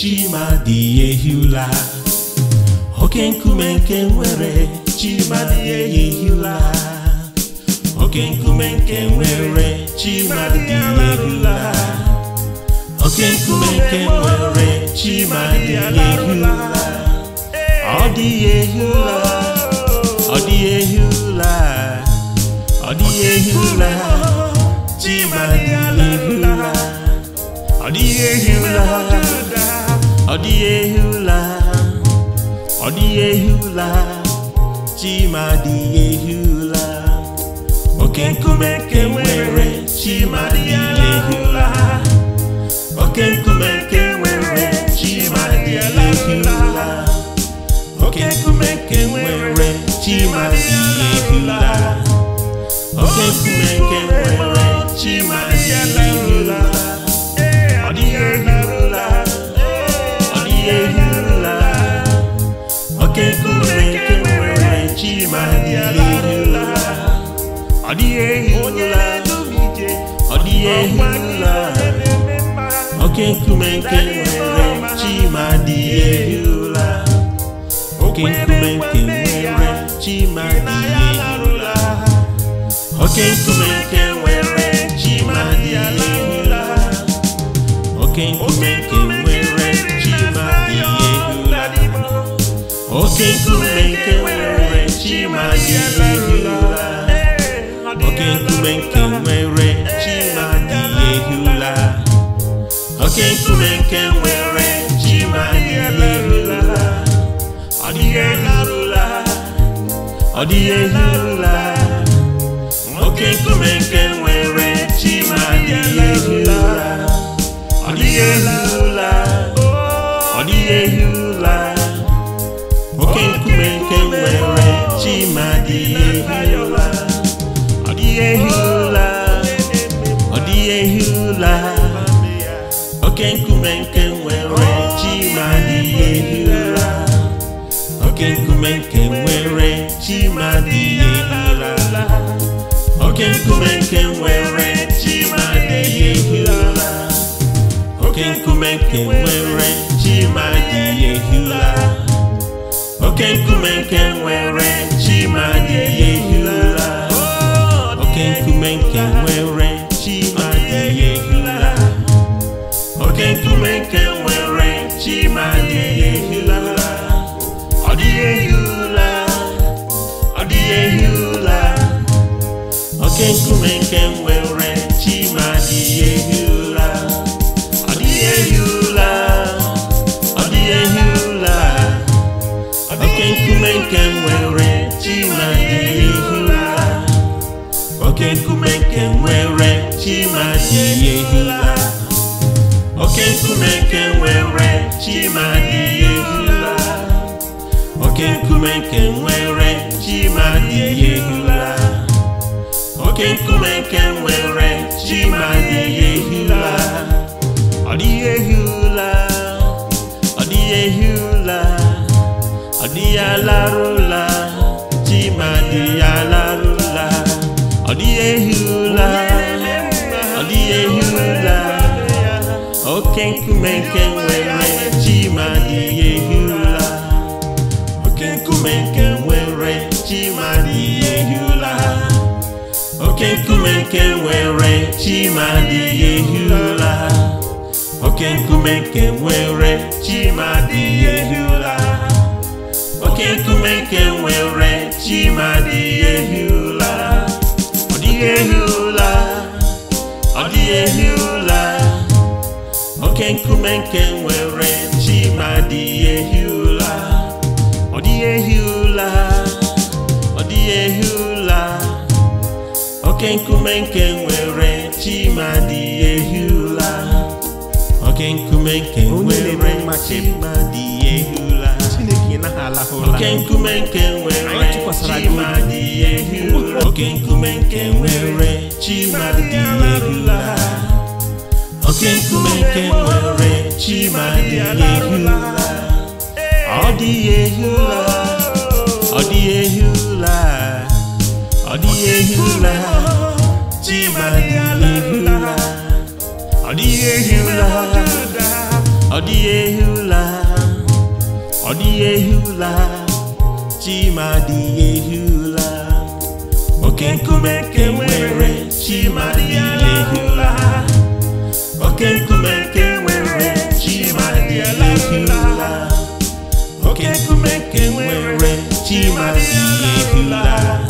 Chimadi ehihula oke nkume nke nwere Chimadi ehihula oke nkume nke nwere Chimadi ehihula oke nkume nke nwere Chimadi ehihula ọ dị ehihula ọ dị ehihula ọ dị ehihula Chimadi ehihula ọ dị ehihula ọ dịghị ehi ụla ọ dịghị ehi ụla chima dịghị ehi ụla oke nkume ke nwere chima dịghị ehi ụla oke nkume ke nwere chima dịghị ehi ụla oke nkume ke nwere chima dịghị ehi ụla oke nkume ke nwere chima oke nkume nke nwere chima dị ehi ụla oke nkume nke nwere chima dị oke nkume nke nwere chima dị ehi oke nkume nke nwere chima dị ehi oke nkume nke nwere chima dị ehi ụla oke nkume nke nwere chi ma dị ụla oke nkume nke nwere chi ma dị ụla ọ dịghị elarụla ọ dịghị ehi ụla oke nkume nke nwere chi ma dị ụla ọ dịghị ehi ụla ọ dịghị ehi ụla oke nkume nke nwere chi ma dị ehula dịghị ụla ọ dịghị ụla oke nkume nke nwere chi ma dịghị ehi ụla oke nkume nke nwere chi ma dịghị ehi ụla oke nkume nke nwere chi ma dịghị ehi ụla oke nkume nke nwere chi ma dịghị ehi ụla oke nkume nke nwere chi ma dịghị ehi ụla nkume nke nwere chi ma dị ehila oke nkume nke nwere chi ma dị ehila ọ dịghị ehila ọ dịghị ehila oke nkume nke nwere Chimadi oke nkume nke nwere ji ehula oke nkume nke nwere Chimadi ehula ọ dịghị ehula ọ dịghị ọ dịghị alarụla Chimadi alarụla ọ dịghị ehula ọ dịghị oke nkume nke nwere nke nwere chima adịghị ehi ụra oke nkume nke nwere chima adịghị ehi ụra oke nkume nke nwere chima adịghị ehi ụra ọ dịghị ehi ụra ọ dịghị ehi ụra oke nkume nke nwere chima adịghị ehi ụra ọ dịghị ehi ụra ọ dịghị ehi oke nkume nke nwere chimadi dị ụla oke nkume nke nwere chimadi ehi oke nkume nke nwere chimadi ehi oke nkume nke nwere nkume nke nwere ọ dị ehi ọ dịghị ehi ụla ọ dịghị ụla dị ehi ụla ọ dịghị ehi ụla ọ dịghị ọ ụla dị ehi ụla oke nkume nke nwere chima dị ụla oke nkume nke nwere chima dị ụla oke nkume nke nwere chima ụla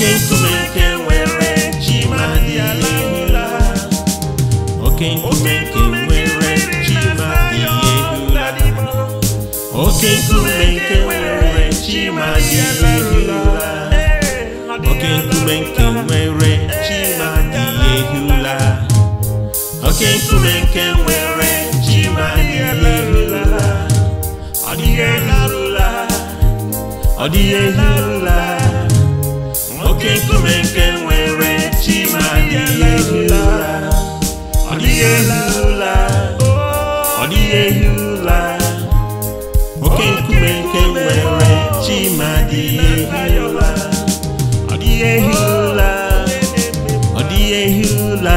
oke nkume nwere chi ma dị oke nkume nwere chi ma dị oke oke nkume nke nwere chi ma dị ehula oke nkume nke nwere chi ma dị ehula ọ dịghị ụla ọ dịghị ụla oke nkume nke nwere chi ma ụla ọ ụla nwere ehi ụla ọ dịghị ehi ụla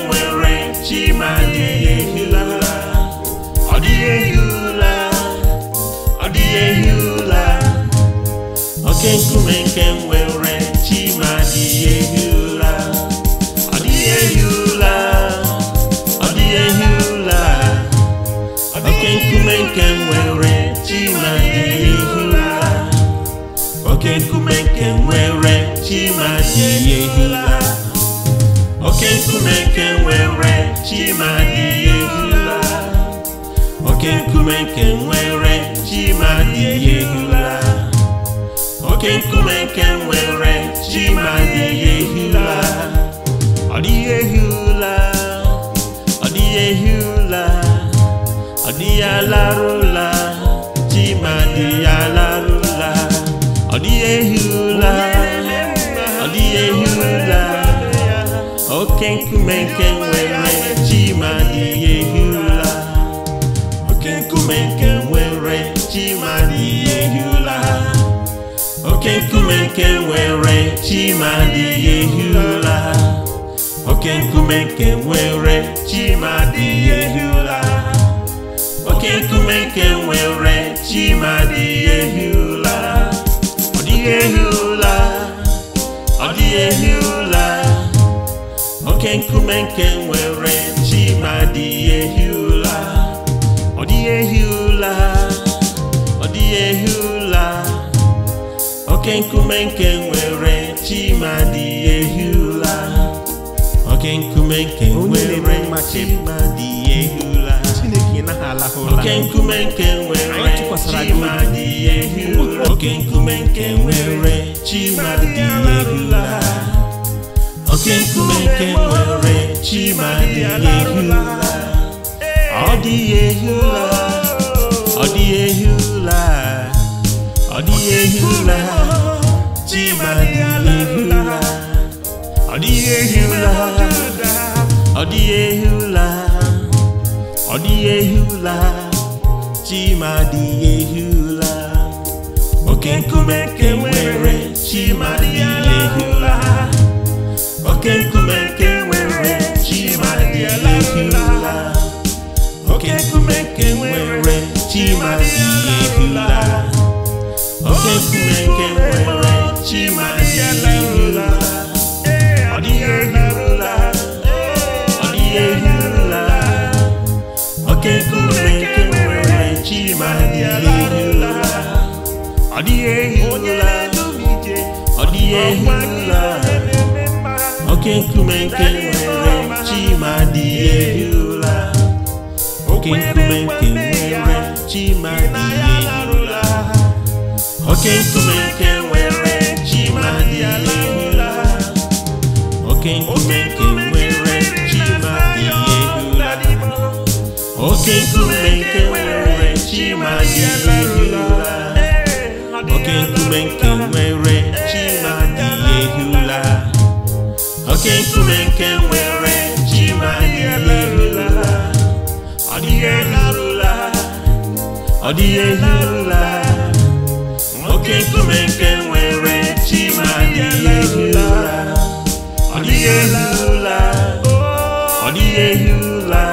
oke nkume nke nwere chi ma ehi ụla ọ nke nwere chima adịghị ehi ụla oke nkume chima nkume nke nwere chima ehi ụla oke nkume nke nwere chima ehi ụla oke nkume nke nwere ji ma dịghị ehi ụla ọ ehi ọ ehi ụla ọ ala ma ọ ehi ụla ọ ehi oke nkume nke nwere Chimadi ehi oke nkume nke nwere Chimadi ehi ụla oke nkume nke nwere Chimadi ehi ụla ọ dịghị ehi ụla ọ ehi ụla oke nkume nke nwere Chimadi ehi ụla ọ dịghị ehi ụla ọ ehi ụla oke nkume nke nwere chimadi ehula oke nkume nke nwere chimadi ehula oke nkume nke nwere chimadi ehula oke nkume nke nwere chimadi ehula oke nkume nke nwere chimadi ehula ọ dị ehula ọ ehula ọ dịghị ehi ọ dịghị ehi ọ dịghị ehi ọ dịghị ehi ụra chima dịghị oke nkume nke nwere chima dịghị ehi ụra oke nkume nke nwere chima dịghị ụla. oke nkume nke oke nke nwere chimadịla ọ dịghị ehirula ọ dịghị ehirula ụlọ Chineke nwere chimadịla ọ dịghị ehirula ọ dịghị ehirula oke Chineke nwere oke nwere chimadịla oke nkume nke nwere chi ma dị ehula oke nkume nke nwere chi ma dị ehula oke nkume nke nwere chi ma dị ehula oke nkume nke nwere chi ma dị ehula oke nkume nke nwere chi ma dị ehula ọ dịghị ehula ọ dịghị ehula oke nkume nke nwere chi ma ehi ụra ọ dịghị ehi ụra ọ dịghị ehi ụra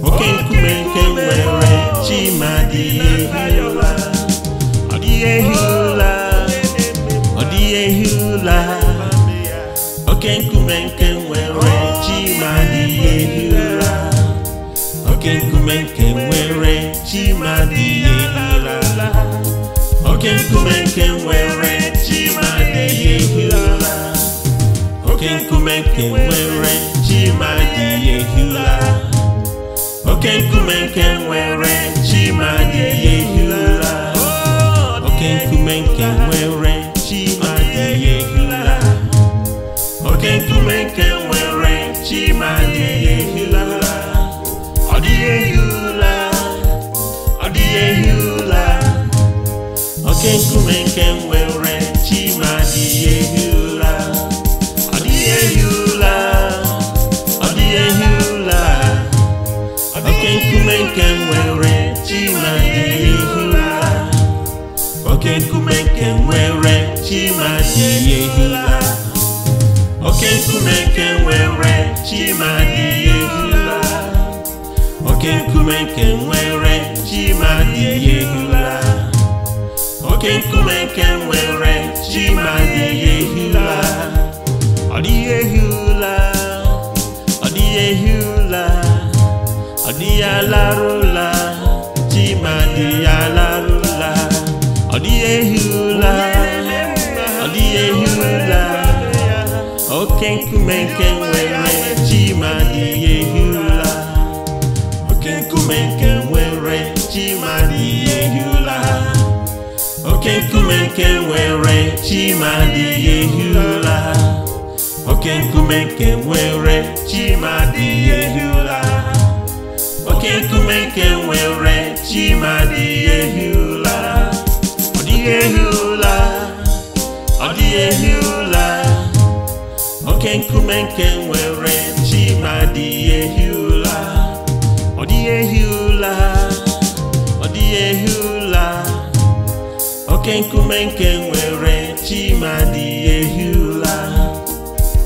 nwoke nkume nke nwere chima dịghị ehi ụra ọ dịghị ehi ụra ọ dịghị ehi ụra nwoke nkume nke nwere chima dịghị ehi ụra nwoke nkume nke nwere chima dịghị oke nkume nke nwere chi ma dị ehi ụla oke nkume nke nwere chi ma dị ehi ụla oke nkume nke nwere chi ma dị ehi ụla oke nkume nke nwere nke nwere chimadịghị ehi ụla ọ dịghị ehi ụla ọ dịghị ehi ụla oke nkume nke nwere chimadịghị ehi ụra. oke nkume nke nwere chimadịghị ehi ụra. oke nkume nke nwere chimadịghị ehi ụra. oke nkume nke nwere chimadịghị ehi ụra. oke nkume nke nwere ji ma dịghị ehi ụla ọ dịghị ehi ụla ọ dịghị ehi ụla ọ dịghị alarụla ji ma dịghị alarụla ọ dịghị ehi ụla ọ dịghị ehi ụla oke nkume nke nwere ji ma dịghị nwere chimadi ehi ụra oke nkume nke nwere chimadi ehi ụra oke nkume nke nwere chimadi ehi ụra ọ dịghị ehi ụra ọ dịghị ehi ụra oke nkume nke nwere chimadi ehi ụra ọ dịghị ehi ụra ọ dịghị ehi ụra. oke nkume nke nwere chimadi ehula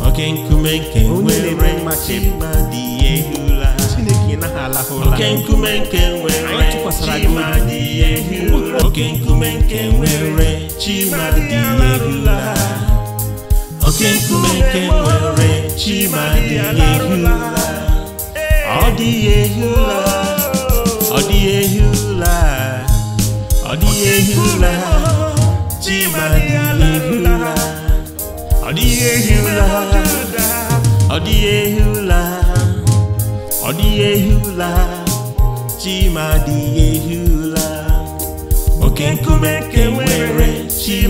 oke nkume nke nwere chimadi ehula chineke naghị oke nkume nke nwere chimadi ehula oke nkume nke nwere chimadi ehula oke nkume nke nwere chimadi ehula ọ dịghị ehula ọ dị ehula ọ dịghị ehi dịghị ehi ụra ọ dị ehi oke nkume ke nwere dị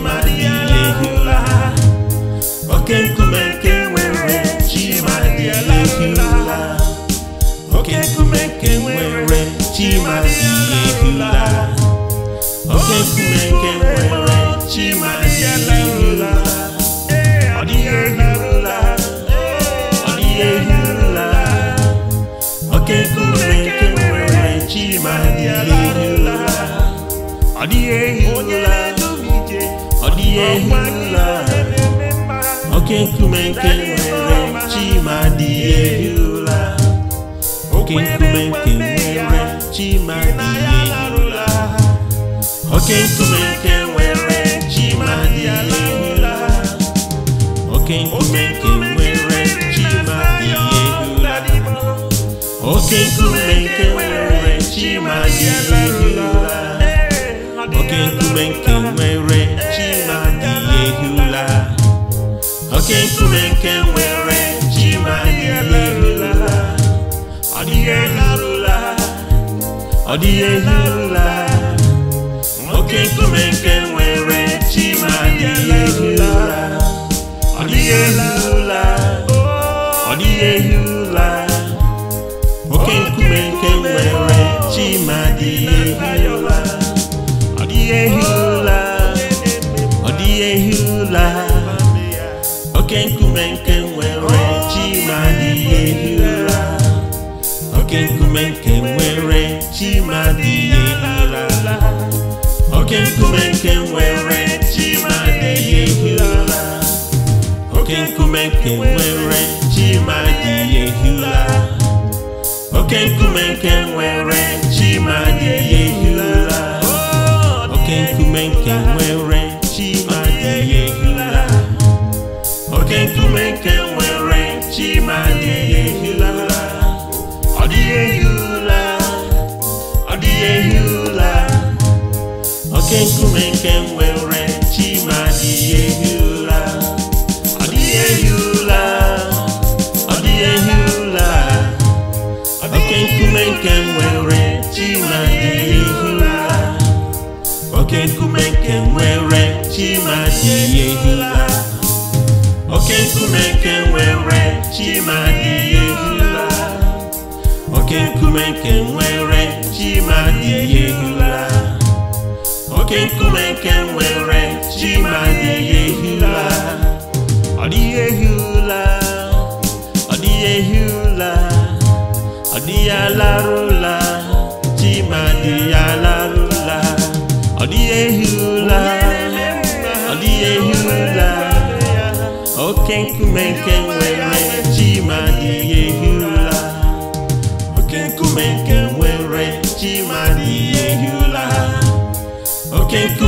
oke nkume ke nwere chima dị ehi oke nkume nwere chima ehi oke nkume nke nwere chimadirula ọ dịghị ọ oke nkume nke nwere chima ọ dịghị oke oke nkume nke nwere chi ma dị ehula oke nkume nke nwere chi ma dị ehula oke nkume nke nwere chi ma dị ehula oke nkume nke nwere chi ma dị ehula oke nkume nke nwere chi ma dị ehula ọ dịghị ehula ọ dịghị ehula oke nkume nke nwere chi dịghị ehi ụla ọ ọ dịghị ehi ụla oke nkume nke nwere chima dịghị ehi ụla ọ dịghị ehi ụla ọ dịghị ehi ụla oke nkume nke nwere chi ma dịghị ehi ụla oke nkume nke nwere chi chima dịghị oke nkume nke nwere chima dị ehi ụla oke nkume nke nwere chima dị ehi ụla oke nkume nke nwere chima dị ehi ụla oke nkume nke nwere chima dị ehi ụla oke nkume nke nwere nwere oke nkume nke nwere chi ma ehi ụla oke nkume nke nwere chima dị ihe ehi oke nkume nke nwere chima ehi ụla oke nkume nke nwere chi ma na-ehi ụla ọ dịghị ehi ụla ọ dịghị ehi ụla ọ dịghị alarụ ụla chi ma dị ya alarụ ụla ọ dịghị ehi ụla ọ dịghị ehi ụla oke nkume nke nwere chi ma dị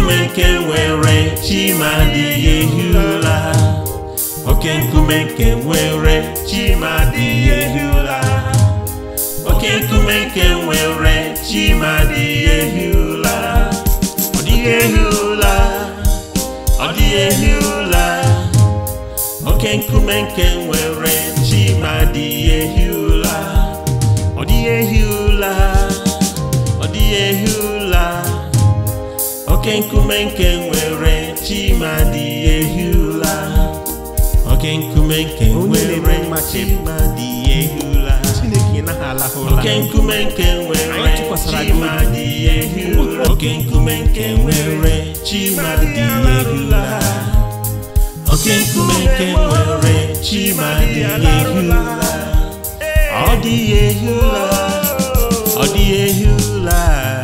nkume nke nwere chimadịghị ehi ụla oke nkume nke nwere chimadịghị ehi ụla oke nkume nke nwere chimadịghị ehi ụla ọ dịghị ehi ụla ọ dịghị ehi ụla oke nkume nke nwere chimadịghị ehi ụla ọ dịghị ehi ụla ọ dịghị ehi ụla oke nkume nke nwere chimadi dị ụla oke nkume nke nwere chimadi ehi oke nkume nke nwere chimadi ehi oke nkume nke nwere nkume nke nwere ọ dị ehi ọ dịghị ehi ụla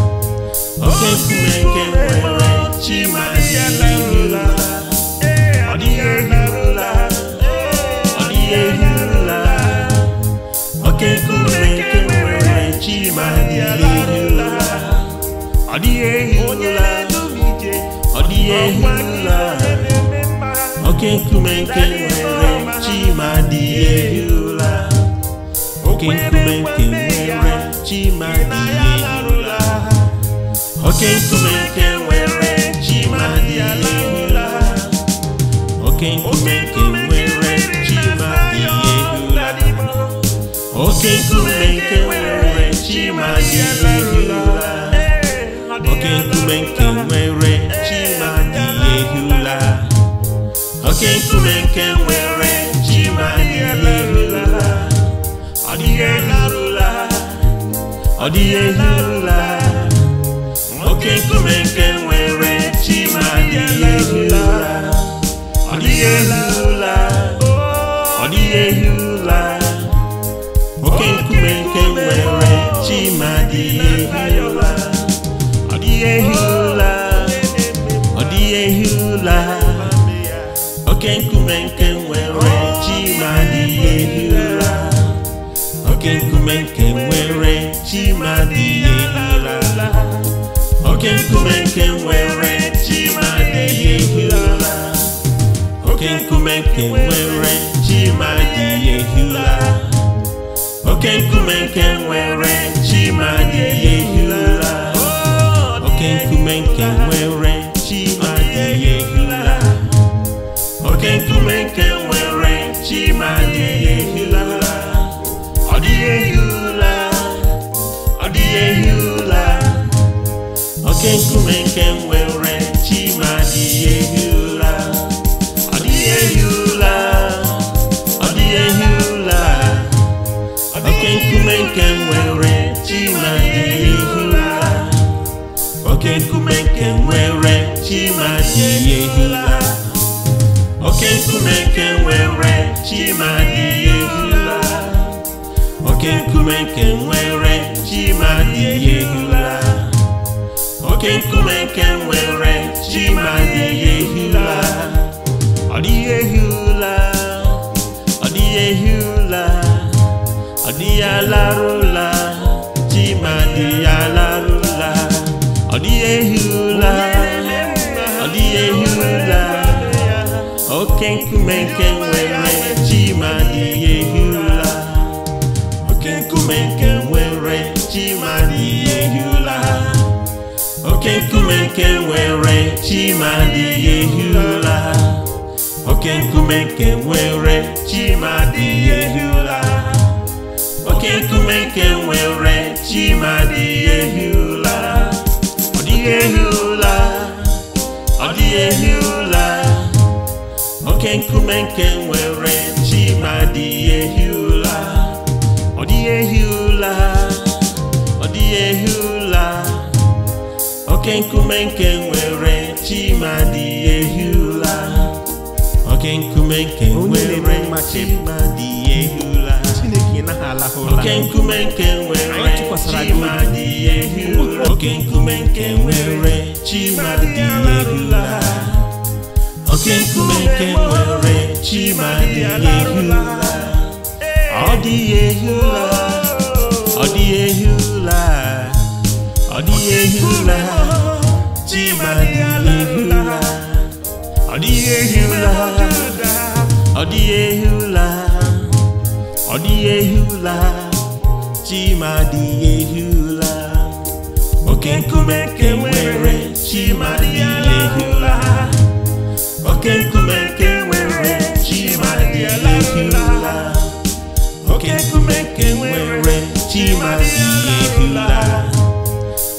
Okesumeke nwere chimaziala ọ dịghị ehirula ọ dịghị ehirula Okesumeke nwere chimaziala ọ dịghị ehirula ọ dịghị ehirula Okesumeke nwere chimadịghị ehirula nwere oke nkume nwere chi ma dị oke nkume nwere chi ma dị ụla oke nkume nwere nwere chi ma dị oke ọ dịghị ụla ọ dịghị ụla oke nkume nke nwere chi ma ụla nke nwere adịghị ụla ehi ụla oke nkume nke nwere chima ehi ụla oke nkume nke nwere chima okenkumenke nwere chimadịghị ehi ụra okenkumenke nwere chimadịghị ehi ụra okenkumenke nwere chimadịghị ehi ụra okenkumenke nwere chimadịghị ehi ụra okenkumenke Chukwuemeke nwere chima adịghị ehi ụla ọ dịghị ehi ụla ọ dịghị ehi ụla oke nkume nke nwere chima adịghị ehi ụla oke nkume nke nwere chima adịghị ehi ụla oke nkume nke nwere chima adịghị ehi ụla oke nkume nke nwere chima adịghị ehi ụla oke nkume nke nwere chi ma dịghị ehi ụla ọ dịghị ehi ụla ọ dịghị ehi ụla ọ dịghị alarụ ụla chi ma dịghị alarụ ụla ọ dịghị ehi ọ oke nkume nke nwere chi ma dịghị ehi oke nkume nke nwere chimadịghị ma ụla oke nkume nke nwere ehi ụla oke nkume nke nwere chimadịghị ehi ehi ọ ọ oke nkume nke nwere chimadi ehula oke nkume nke nwere chimadi ehula oke nkume nke nwere chimadi ehula oke nkume nke nwere chimadi ehula oke nkume nke nwere chimadi ehula ọ dị ehula ọ dị ehula ọ dịghị ehi ọ dịghị ehi ọ dịghị ehi ọ dịghị ehi ụra chima dịghị oke nkume nke nwere chima dịghị ehi oke nkume nke nwere dịghị ụla. oke nkume nke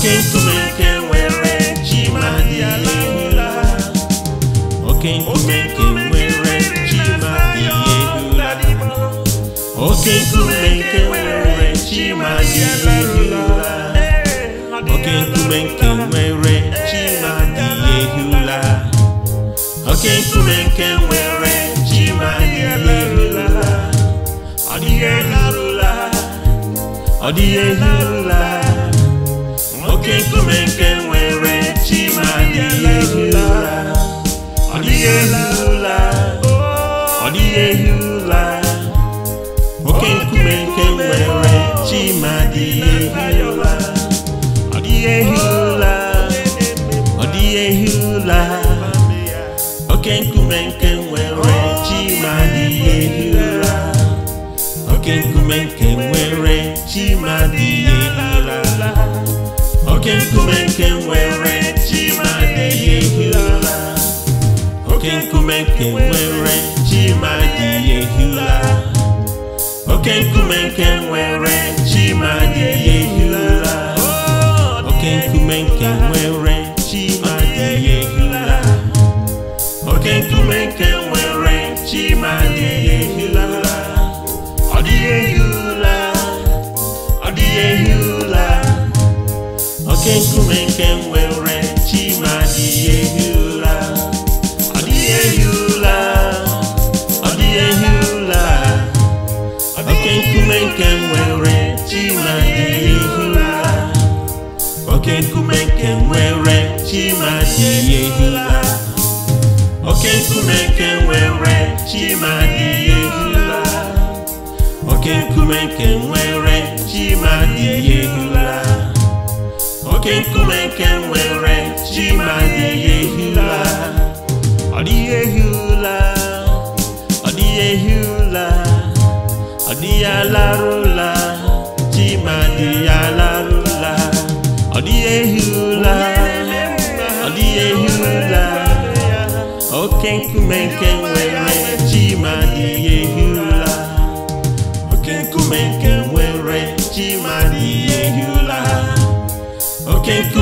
oke nkume oke nkume nke nwere chi ma dị ehi ụla oke nkume nke nwere chi ma dị ehi ụla oke nkume nke nwere chi ma dị ehi ụla ọ dịghị ehi ụla ọ dịghị ehi ụla oke nkume nke nwere chi ma ehi ụla ọ dịghị ọ dịghị ehi ụla nkume nke nwere chima dịghị ehi ụla ọ dịghị ehi ụla ọ dịghị ehi ụla nkume nke nwere chima dịghị ehi ụla Oke nkume nke nwere chima dịghị oke nkume nke nwere chima dị ehi ụra. oke nkume nke nwere chima dị ehi ụra. oke nkume nke nwere chima dị ehi ụra. oke nkume nke nwere chima dị ehi ụra. oke nkume nke nwere chima dị ehi ụra. ọ dịghị ehi ụra. ọ dịghị ehi nwere were chia ehi la ehiụla adiehiụla Oke nkume nke nwere chimad ehi ụla nke nwere chima Oke nkume nke nwere chima dịihe hi la oke nkume nke nwere chima dịi ehu oke nkume nke nwere chi ma dịghị ehi ụla ọ dịghị ehi ụla ọ dịghị ehi ụla ọ dịghị alarụ ụla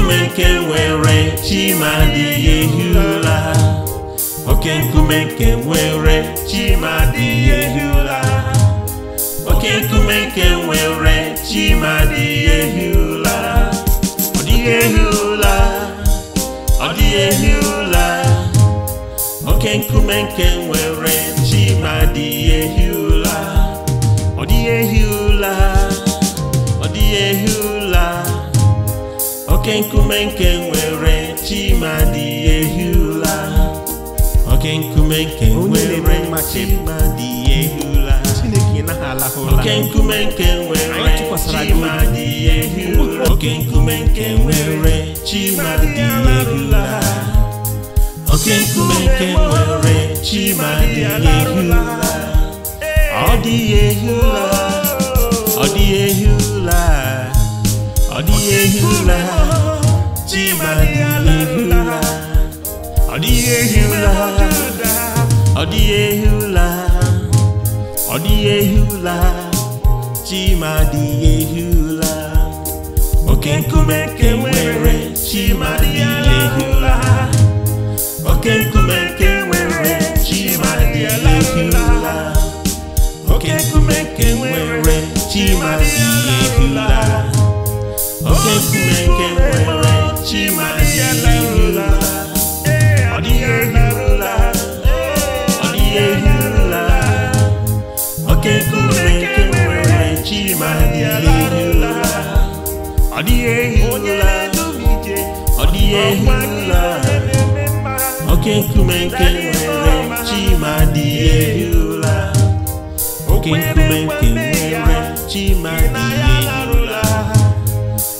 nkume nke nwere chi ma adịghị ehi ụla oke nkume nke nwere chi ma adịghị ehi oke nkume nke nwere chi ma adịghị ehi ọ dịghị ehi ọ dịghị ehi oke nkume nke nwere nkume nke nwere chimadi ehi ụla oke nkume nke nwere chimadi ehi ụla oke nkume nke nwere chimadi ehi ụla oke nkume nke nwere chimadi ehi ụla oke nkume nke nwere chimadi ehi ụla ọ dịghị ehi ụla ọ dịghị ehi ụla ọ dịghị ehi ụla chimadịla ọ dịghị ehi ụla ọ dịghị ehi ụla ọ dịghị ehi ụla chimadịghị ehi ụla oke nkume nke nwere chimadịghị ụla oke nkume nke nwere chimadịghị ụla oke nkume nke nwere oke nkume nwere oke nkume nke nwere chima dị ehi ahụ oke nkume nke nwere chima dị ehi ụla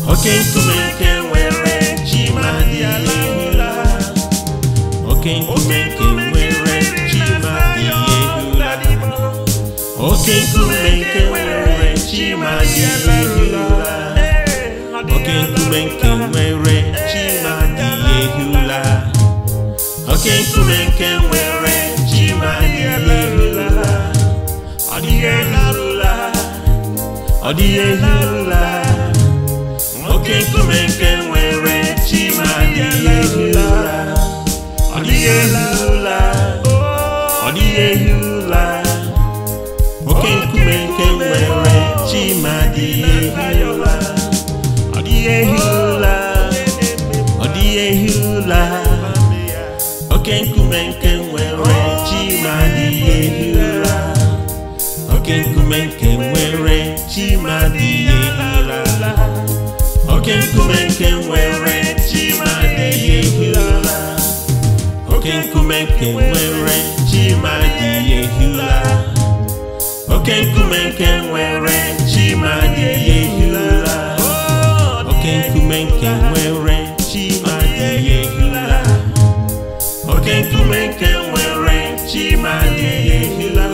oke nkume nke nwere oke nkume nke nwere chima dị ehula oke nkume nke nwere chima dị ehula oke nkume nke nwere chima dị ehula oke nkume nke nwere chima dị ehula ọ dịghị elarụla ọ dịghị elarụla oke nkume nke nwere ehi ụla ọ dịghị ehi ụla oke nkume nke nwere chima dị ehi ụla ọ dịghị ehi ụla oke nkume nke nwere chima dịghị ehi ụla oke nkume nke nwere chima ụla oke nkume nke nwere chima dị ehula oke nkume nke nwere chima dị ehula oke nkume nke nwere chima dị ehula oke nkume nke nwere chima dị ehula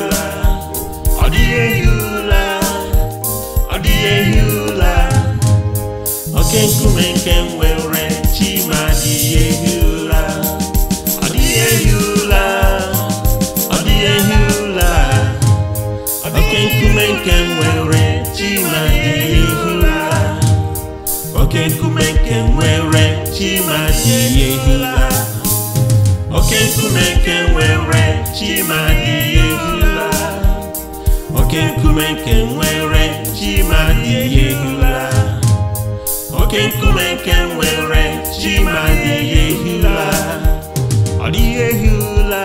ọ dị ehula ọ dị ehula oke nkume nke nwere chima Chimadi ehula oke nkume nke nwere Chimadi ehula oke nkume nke nwere Chimadi ehula ọ dịghị ehula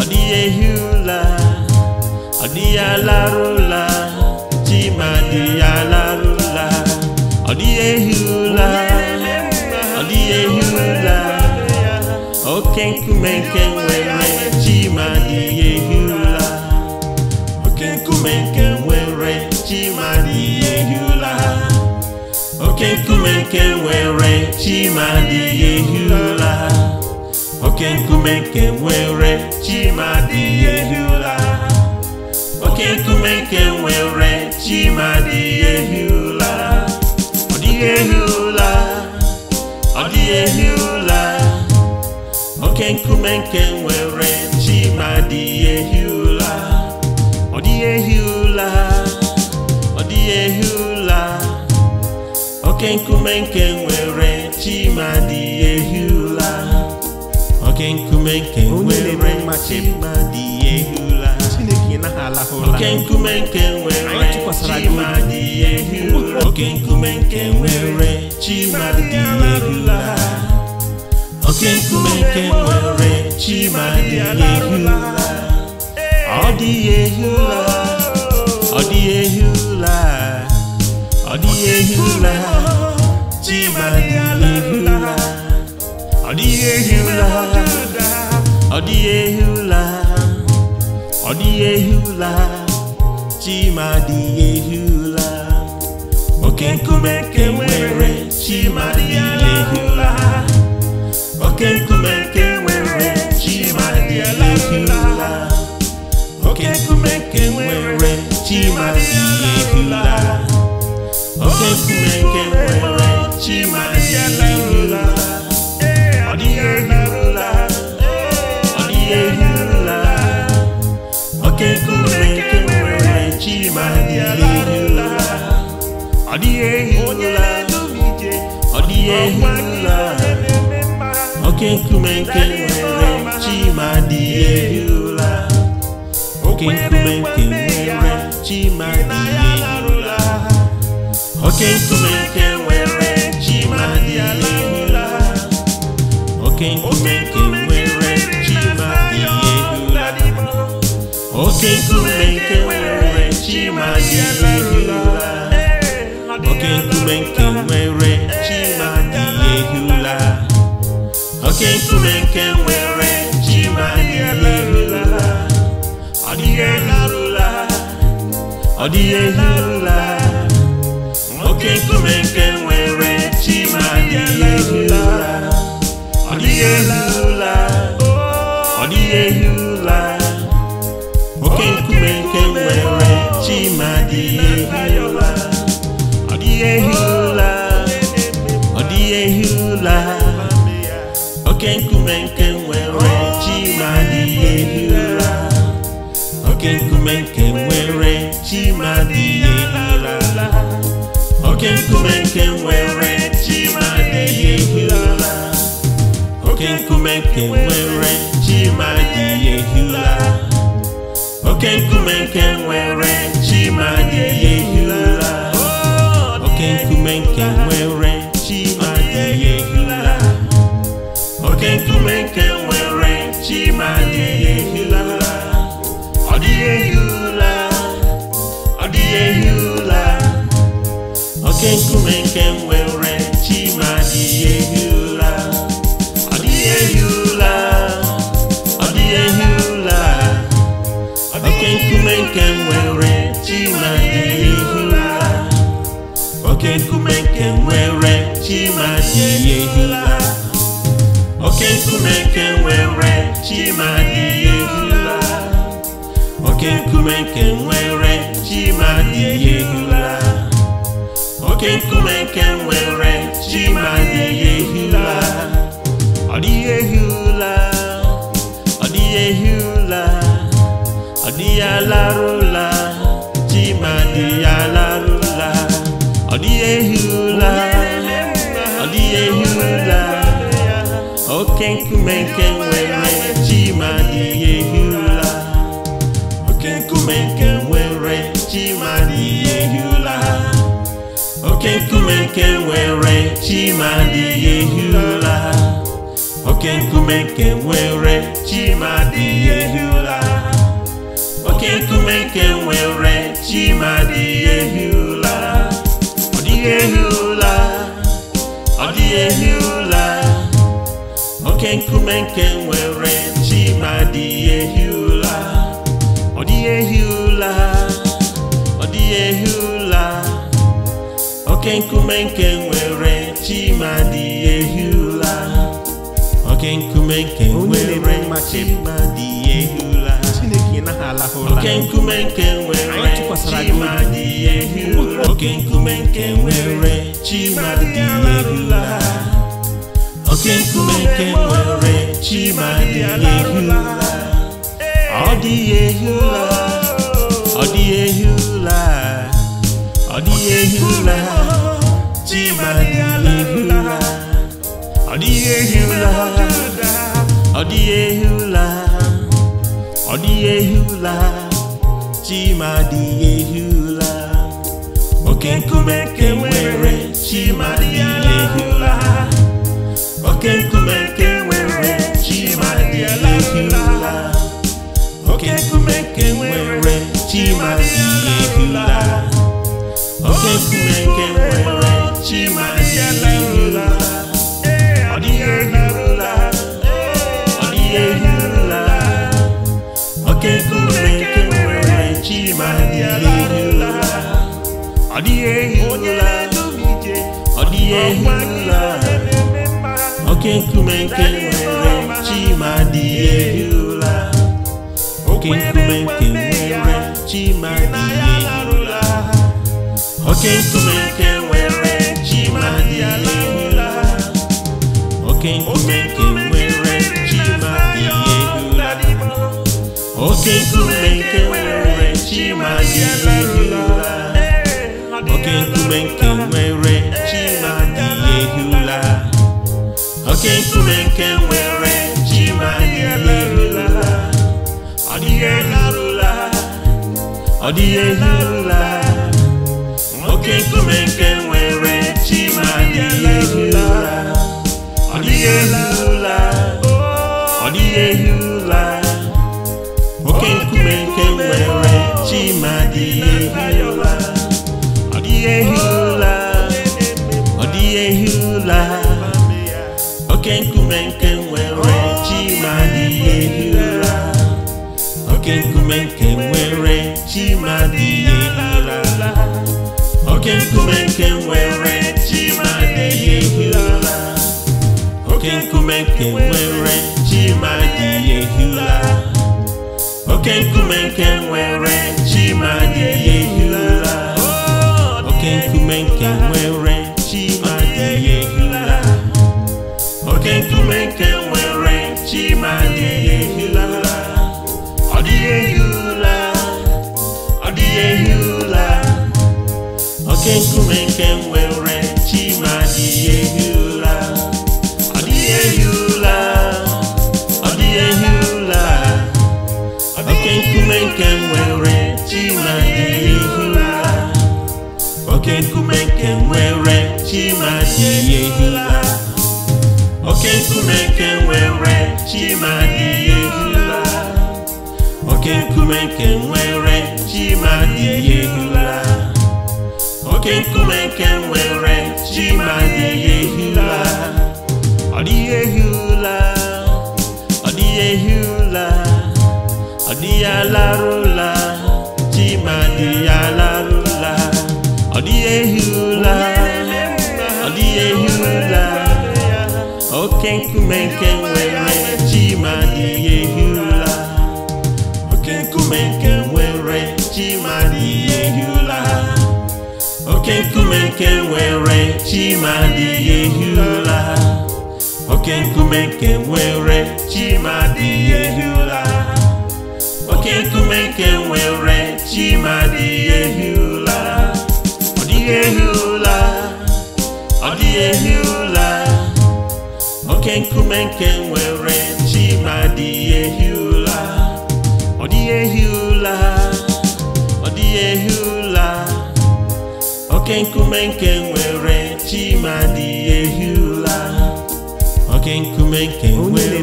ọ dịghị ehula ọ dịghị alarụla Chimadi alarụla ọ dịghị ụla, ọ dịghị ụla, oke nkume nke nkume nke nwere chima adịghị oke nkume nke nwere chima adịghị ehi ụla oke nkume ụla ọ dịghị ehi ọ dịghị ehi oke nkume nke nwere chima adịghị ehi ụla ọ ehi oke nkume nke nwere chimadi ehi ụla oke nkume nke nwere chimadi ehi ụla oke nkume nke nwere chimadi ehi ụla oke nkume nke nwere chimadi ehi ụla oke nkume nke nwere chimadi ehi ụla ọ dị ehi ọ dị ehi ụla ọ dịghị ụla dị ehi ụla ọ dịghị ehi ụla ọ dịghị ọ ụla dị ụla oke nkume nwere chima dị ụla oke nkume nwere chima dị ụla oke nkume nwere chima ụla oke Chineke nwere chimaziirula ọ dịghị ehirula ọ dịghị ehirula oke Chineke nwere chimaziirula ọ dịghị ọ dịghị oke Chineke nwere chimadịghị oke nwere oke nkume nwere chi ma dị oke nkume nwere chi ma dị ụla oke nkume nwere nwere chi ma dị ọ dịghị ụla oke nkume nke nwere chi ma ehi ụla ọ nkume nke nwere chima adịghị ehi ụla oke nkume nke nwere chi ma dị ehi ụra oke nkume nke nwere chi ma dị ehi ụra oke nkume nke nwere chi ma dị ehi ụra oke nkume nke nwere chi ma dị ehi ụra oke nkume nke nwere chi ma dị ehi ụra ọ dịghị ehi ụra ọ dịghị ehi oke nkume nke nwere chi ma adịghị ehi ụra. ọ dịghị ehi ụla ọ dịghị ehi ụla oke nkume nke nwere chi ma adịghị ehi ụla oke nkume nke nwere chi ma adịghị ehi ụla oke nkume nke nwere chi ma adịghị ehi ụla oke nkume nke nwere oke nkume nke nwere ji ma dịghị ehi ụla ọ dị ehi ụla ọ dị ehi ụla ọ dịghị alarụ ụla ji ma dịghị alarụ ụla ọ dị ehi ụla ọ dị ehi ụla oke nkume nke nke nwere chima dị oke nkume nke nwere chima dị ya ehi oke nkume nke nwere chima dị ya ehi ụla ọ dịghị ehi ọ dịghị ehi oke nkume nke nwere chima dị ya ehi ụla ọ dịghị ehi ọ dịghị ehi oke nkume nke nwere chimadi ehula oke nkume nke nwere chimadi ehula oke nkume nke nwere chimadi ehula oke nkume nke nwere chimadi ehula oke nkume nke nwere chimadi ehula ọ dị ehula ọ dị ehula ọ dịghị ehi dịghị ehi ọ dịghị ehi ọ dịghị ehi Ọ chimadịghị ehi oke nkume nke nwere oke nkume nke nwere chimadịghị ehi oke nkume nke nwere ehi ụla. oke nke nwere chimadịla ọ dịghị ọ dịghị oke Chineke nwere chimadịla ọ dịghị oke nwere chimadịla oke oke nkume nke nwere chi ma dị ụla. oke nkume nke nwere chi ma dị ehula oke nkume nke nwere chi ma dị ụla. oke nkume nke nwere chi ma ehi ụla. oke nkume nke nwere chi ma ehi ụla. ọ dịghị ehula ọ dịghị ehula oke nkume nke nwere chi ma ehi ụra ọ dịghị ehi ụra ọ dịghị ehi ụra nwoke nkume nke nwere chima dịghị ehi ụra ọ dịghị ehi ụra ọ dịghị ehi ụra nwoke nkume nke nwere chima dịghị ehi ụra nwoke nkume nke nwere chima dịghị oke nkume nke nwere chi ma dị ehi ụla oke nkume nke nwere chi ma dị ehi ụla oke nkume nke nwere chi ma dị ehi ụla oke nkume nke nwere chi ma dị ehi ụla oke nkume nke chenwere chima dị ehi ụla ọ dịghị ehi ụla ọ dịghị ụla oke nkume nke nwere chima dị ehi ụla oke nkume nke nwere chima dị ehi ụla oke nkume nke nwere chima dị ehi ụla oke nkume nke nwere chima dị ehi ụla oke nkume nke nwere chi ma dịghị ehi ụla ọ dịghị ehi ụla ọ dịghị ehi ụla ọ dịghị alarụla chi ma dịghị alarụla ọ dịghị ehi ụla ọ dịghị ehi ụla oke nkume nke oke nkume nke nwere chimadi ehi ụla oke nkume nke nwere chimadi ehi ụla oke nkume nke nwere chimadi ehi ụla ọ dịghị ehi ụla ọ dịghị ehi ụla oke nkume nke nwere chimadi ehi ụla ọ dịghị ehi ụla ọ dịghị ehi ụla oke nkume nke nwere chimadi ehula oke nkume nke nwere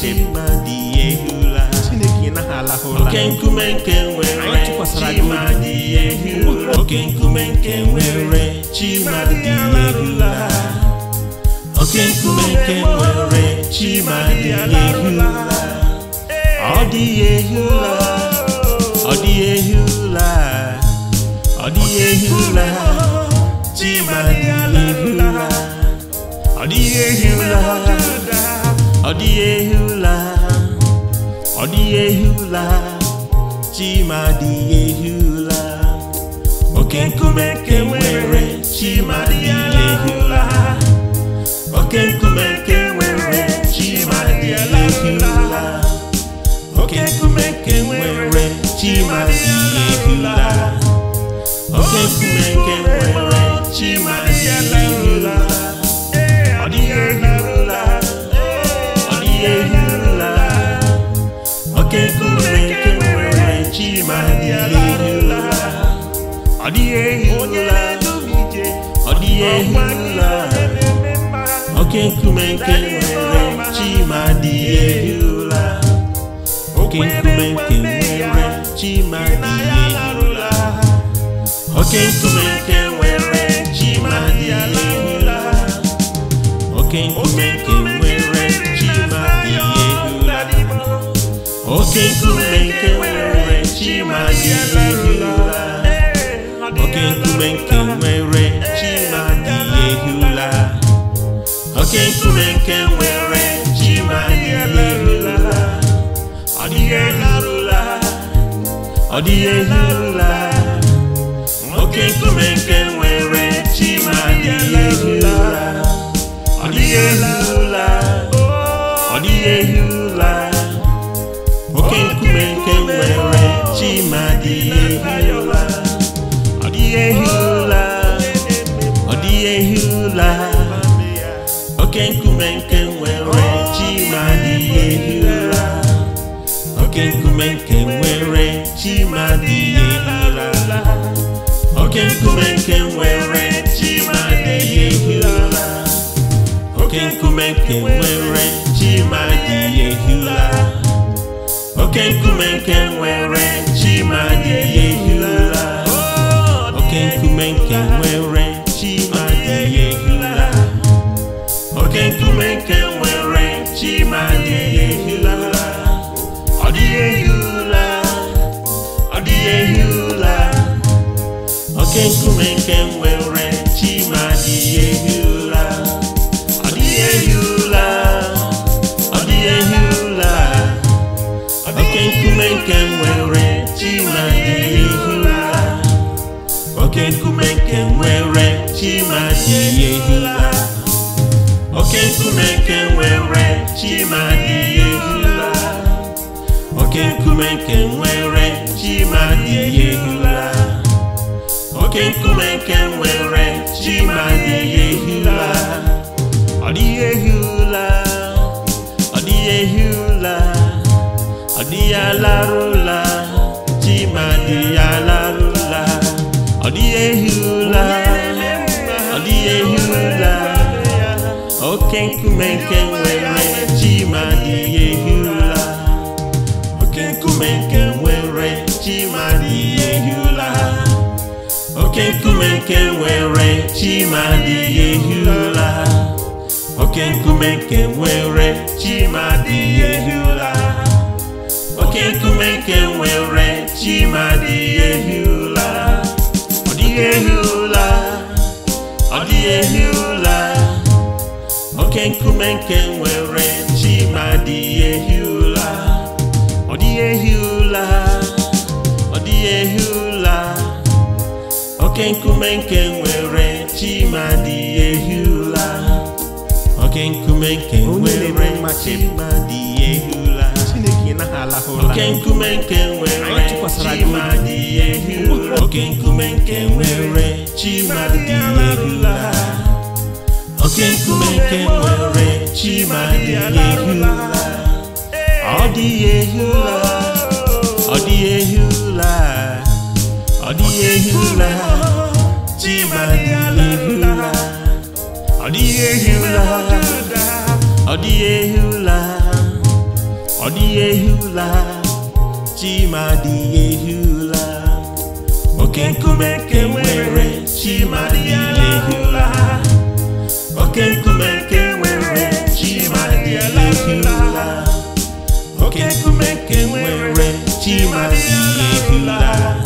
chimadi ehula chineke naghị oke nkume nke nwere chimadi ehula oke nkume nke nwere chimadi ehula oke nkume nke nwere chimadi ehula ọ dị ehula ọ dị ehula ọ dịghị ehi ụra ọ ehi chima ehi oke nkume nke nwere chima dịghị oke nkume nwere chima dịghị ehi oke nkume nke nwere chima oke nkume nke nwere chi ma dịghị ehirula ọ oke nkume nke nwere oke nkume nke nwere chi ma dị ala oke nkume nke nwere chi ma dị ala oke nkume nke nwere chi ma dị ala oke nkume nke nwere chi ma dị ala oke nkume nke nwere chi ma dị ala ọ dịghị elarụla ọ dịghị elarụla oke nkume nke nwere chima dịghị ehi ụla ọ dịghị ehi ụla ọ dịghị ehi ụla oke nkume nke nwere chima dịghị oke nkume nke nwere chima dị ehi ụla oke nkume nke nwere chima dị ehi ụla oke nkume nke nwere chima dị ehi ụla oke nkume nke nwere nke nwere chima ma ehi ọ oke nkume nke nwere chima dị ehi oke nkume nke nwere chima dị ehi ụla oke oke nkume nke nwere chima oke nkume nke nwere chi ma na-ehi ụla ọ dịghị ehi ụla ọ dịghị ehi ụla ọ dịghị alarụ ụla chi ma dị ya alarụ ụla ọ dịghị ehi ụla ọ dịghị ehi ụla oke nkume nke nwere chi ma nkume nke nwere oke nkume nke nwere chima adịghị oke nkume adịghị ehi ụla ọ dịghị ọ dịghị ehi oke nkume nke nwere chima adịghị ehi ụla ọ dịghị ehi ụla ọ oke nkume nke nwere chimadi ehi ụla oke nkume nke nwere chimadi ehi oke nkume nke nwere chimadi ehi oke nkume nke nwere chimadi ehi oke nkume nke nwere ọ dị ehi ọ dịghị ehi ụla ọ dịghị ụla dị ehi ụla ọ dịghị ụla ọ dịghị ụla ọ chima dị ehi ụla oke nkume nke nwere dị ụla oke nkume nwere chima dị ụla oke nkume nwere chima ehi ụla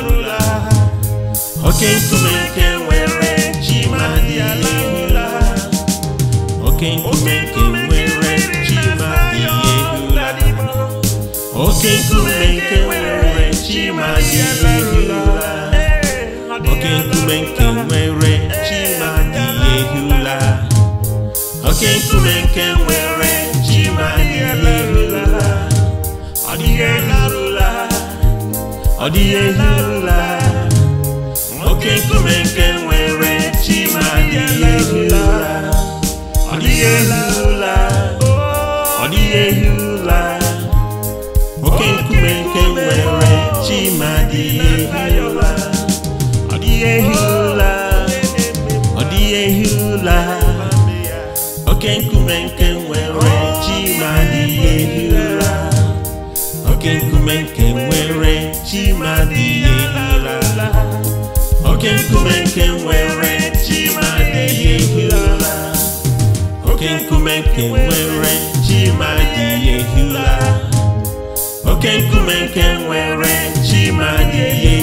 oke nkume nke nwere chi ma dị ụla. oke nkume nke nwere chi ma dị ụla. oke nkume nke nwere chi ma dị ụla. oke nkume nke nwere chi ma dị ụla. oke nkume nke nwere chi ma dị ụla. ọ dịghị ụla. ọ dịghị ehi ụla. oke nkume nke nwere chima adịghị ehi ụla ọ ọ dịghị ehi ụla oke nkume nke nwere chima adịghị ehi ụla ọ dịghị ehi ụla ọ dịghị ehi ụla oke nkume nke nwere chima adịghị ehi ụla oke nkume nke nwere chima adịghị nkume nke nwere chimadịghị ehi ụra oke nkume nke nwere chimadịghị ehi ụra oke nkume nke nwere chi ma chimadịghị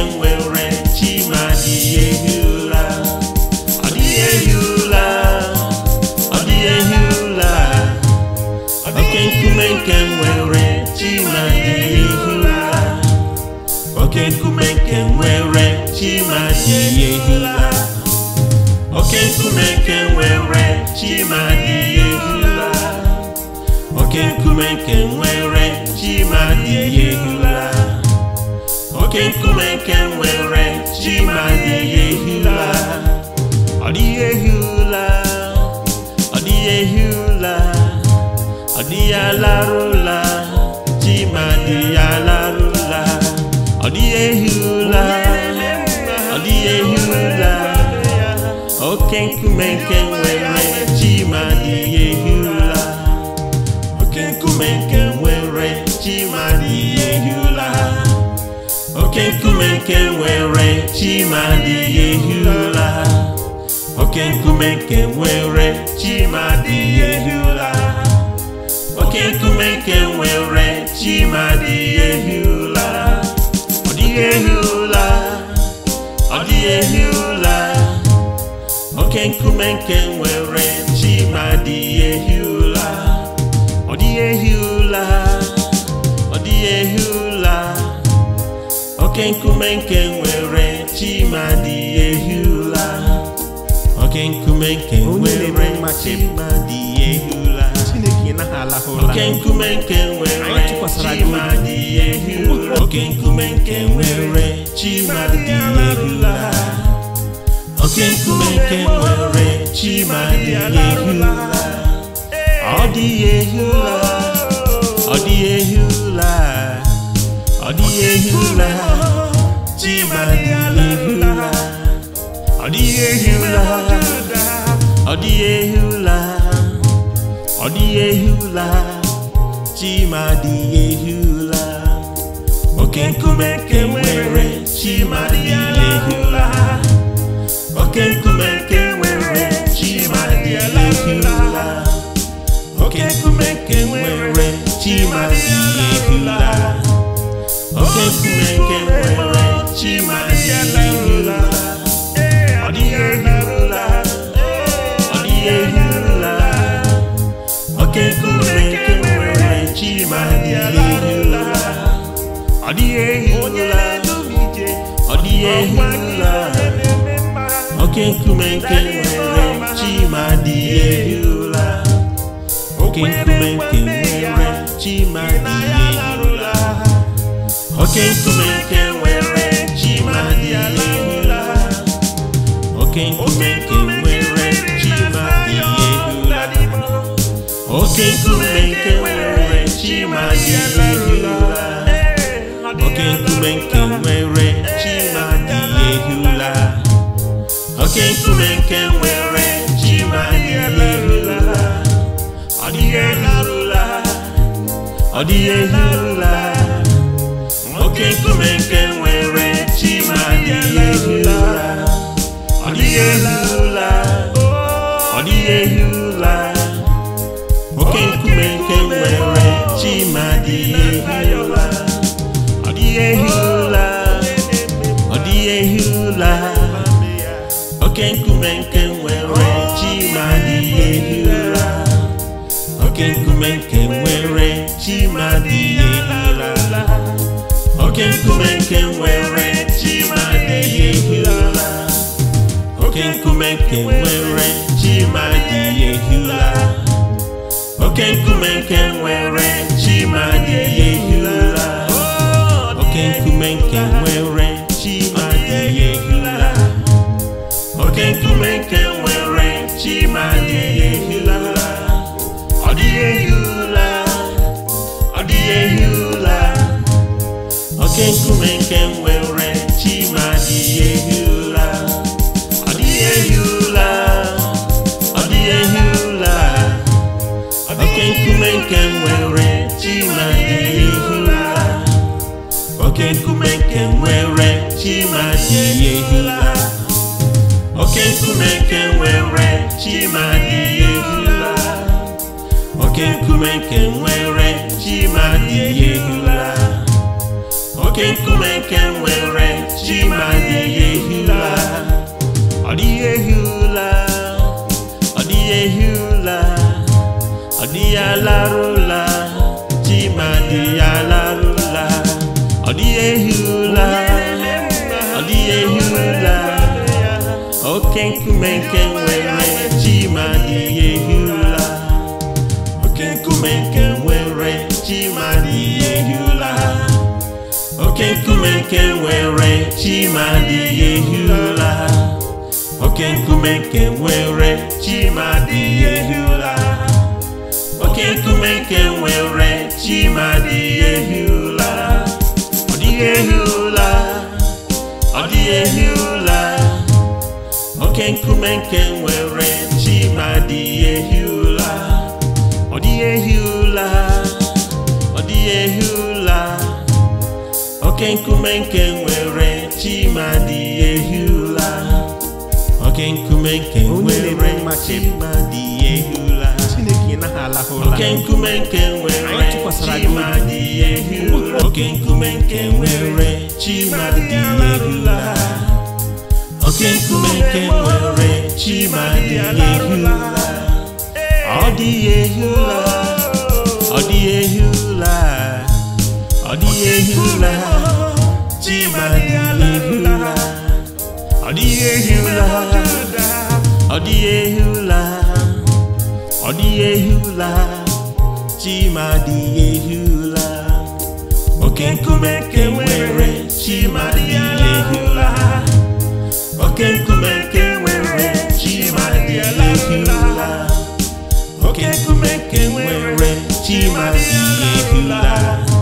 nwere i hi la ehi ụla adị ehi ụla Oke nkume nke nwere chima da e ehi ụla nkuenke were chimadihi Oke nkume nke nwere chima dị e hi oke nkume nke nwere were chimade oke nkume nke nwere ji ma ehi ụla ọ ehi ọ ehi ọ ma ọ ehi ọ ehi oke nkume nke nwere chi ma ihe oke nkume nke nwere chima dị ya ehi ụla oke nkume nke nwere chima dị ya ehi ụla oke nkume nke nwere chima dị ya ehi ụla ọ dịghị ehi ụla ọ dịghị ehi ụla oke nkume nke nwere chima dị ya ehi ụla ọ dịghị ehi ụla ọ dịghị ehi oke nkume nke nwere chimadi ehula oke nkume nke nwere chimadi ehula oke nkume nke nwere chimadi ehula oke nkume nke nwere chima ehula oke nkume nke nwere chimadi ehula ọ dị ehula ọ ọ dịghị ehi ọ dịghị ehi ọ dịghị ehi chima dịghị ehi ụra oke nkume dị oke nkume nke nwere chima dịghị oke nkume nke nwere chima dịghị oke nke nwere chimadịla ọ dịghị ehirula ọ dịghị ehirula oke Chineke nwere chimadịla ọ dịghị ehirula ọ dịghị ehirula oke Chineke nwere oke nwere chimadịla oke nkume nke nwere chi ma dị ala ụla. oke nkume nke nwere chi ma dị ụla. oke nkume nke nwere chi ma dị ala ụla. oke nkume nke nwere chi ma dị ụla. oke nkume nke nwere chi ma dị ala ehula ọ dịghị ehula ọ dịghị ehula oke nkume nke nwere chi ma ehi ụra ọ dịghị ehi ụra ọ dịghị ehi ụra nwoke nkume nke nwere chima dịghị ehi ụra ọ dịghị ehi ụra ọ dịghị ehi ụra oke nkume nke nkume nwere ehi oke nkume nke nwere chi ehi ụra oke nkume nke nwere chimadịghị ehi ụra oke nkume nke nwere chimadịghị ehi ụra oke nkume nke ụra chenwere chima dị ehi ụla ọ dịghị ụla ọ ụla oke nkume nke nwere chima dị ehi ụla oke nkume nke nwere chima dị ụla oke nkume nke nwere chima dị ehi ụla oke nkume nke nwere chima dị ụla oke nkume nke nwere chi ma dịghị ehi ụla ọ dịghị ehi ụla ọ dịghị ehi ụla ọ dịghị alarụla chi ma dịghị alarụla ọ dịghị ehi ụla ọ dịghị ehi ụla oke nkume nke oke nkume nke nwere chimadi ehi ụla oke nkume nke nwere chimadi ehi ụla oke nkume nke nwere chimadi ehi ụla ọ dịghị ehi ụla ọ dịghị ehi ụla oke nkume nke nwere chimadi ehi ụla ọ dịghị ehi ụla ọ dịghị ehi ụla oke nkume nke nwere chimadi ehi ụla oke nkume nke nwere chimadi ehi ụla oke nkume nke nwere chimadi ehi ụla oke nkume nke nwere chimadi ehi ụla oke nkume nke nwere chimadi ehi ụla ọ dịghị ehi ụla ọ dịghị ehi ehila chibadihila ọ dị ehi ọ dịghị ehi ọ dịghị ehi ọ ehi ụla oke nkume nke nwere oke nkume nke nwere chimadịghị ehi oke nkume nke nwere chimadịghị ehi ụla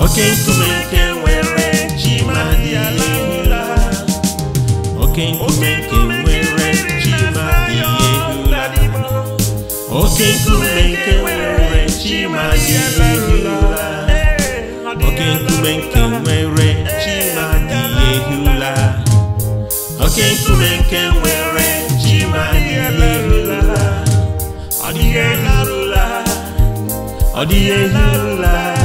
oke nkume nke nwere chi ma dị ehula oke nkume nke nwere chi ma dị ehula oke nkume nke nwere chi ma dị ehula oke nkume nke nwere chi ma dị ehula oke nkume nke nwere chi ma dị ehula ọ dịghị ehula ọ dịghị ehula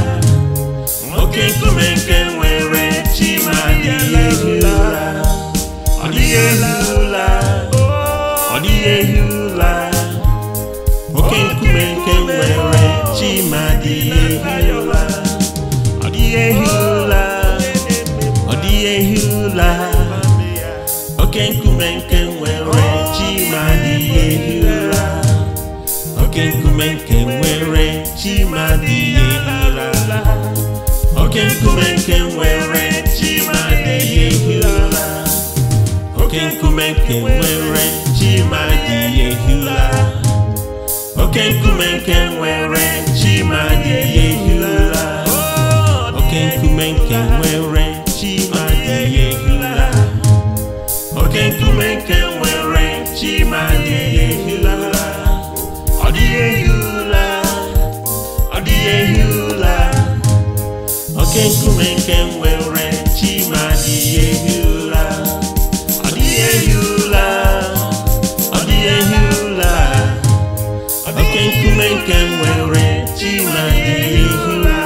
oke nkume nke nwere chima dịghị ehi ụla ọ dịghị ehi ụla ọ dịghị ehi ụla oke nkume nke nwere ma dịghị ehi ụla ọ dịghị ehi ụla ọ dịghị ehi ụla oke nkume nke oke nkume nke nwere chima dị ehi ụla oke nkume nke nwere ehi ụra. oke nkume nke nwere ehi oke nkume nke nwere nke nwere chi ma ehi ụla ọ dịghị ehi ụla ọ dịghị ehi oke nkume nke nwere chi ma ehi ụla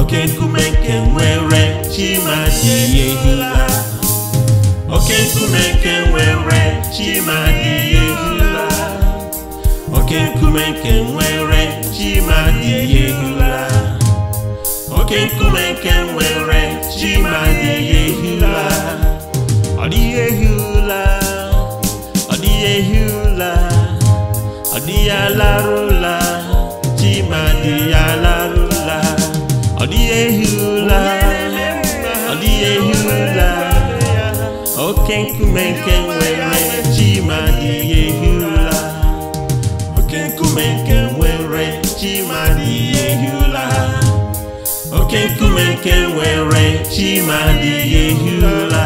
oke nkume nke nwere chi ma ehi ụla oke nkume nke nwere chi ma ehi ụla oke nkume nke nwere chima dị ehi ụla nkenkume nkenwe nwere chi ma na-ehi ehi ụla ọ dịghị ehi ụla ọ dịghị ehi ụla dị ya alarụ ụla ọ dịghị ehi ụla ọ dịghị oke nkume nkenwe nwere oke nkume nke nwere chima adịghị ehi ụla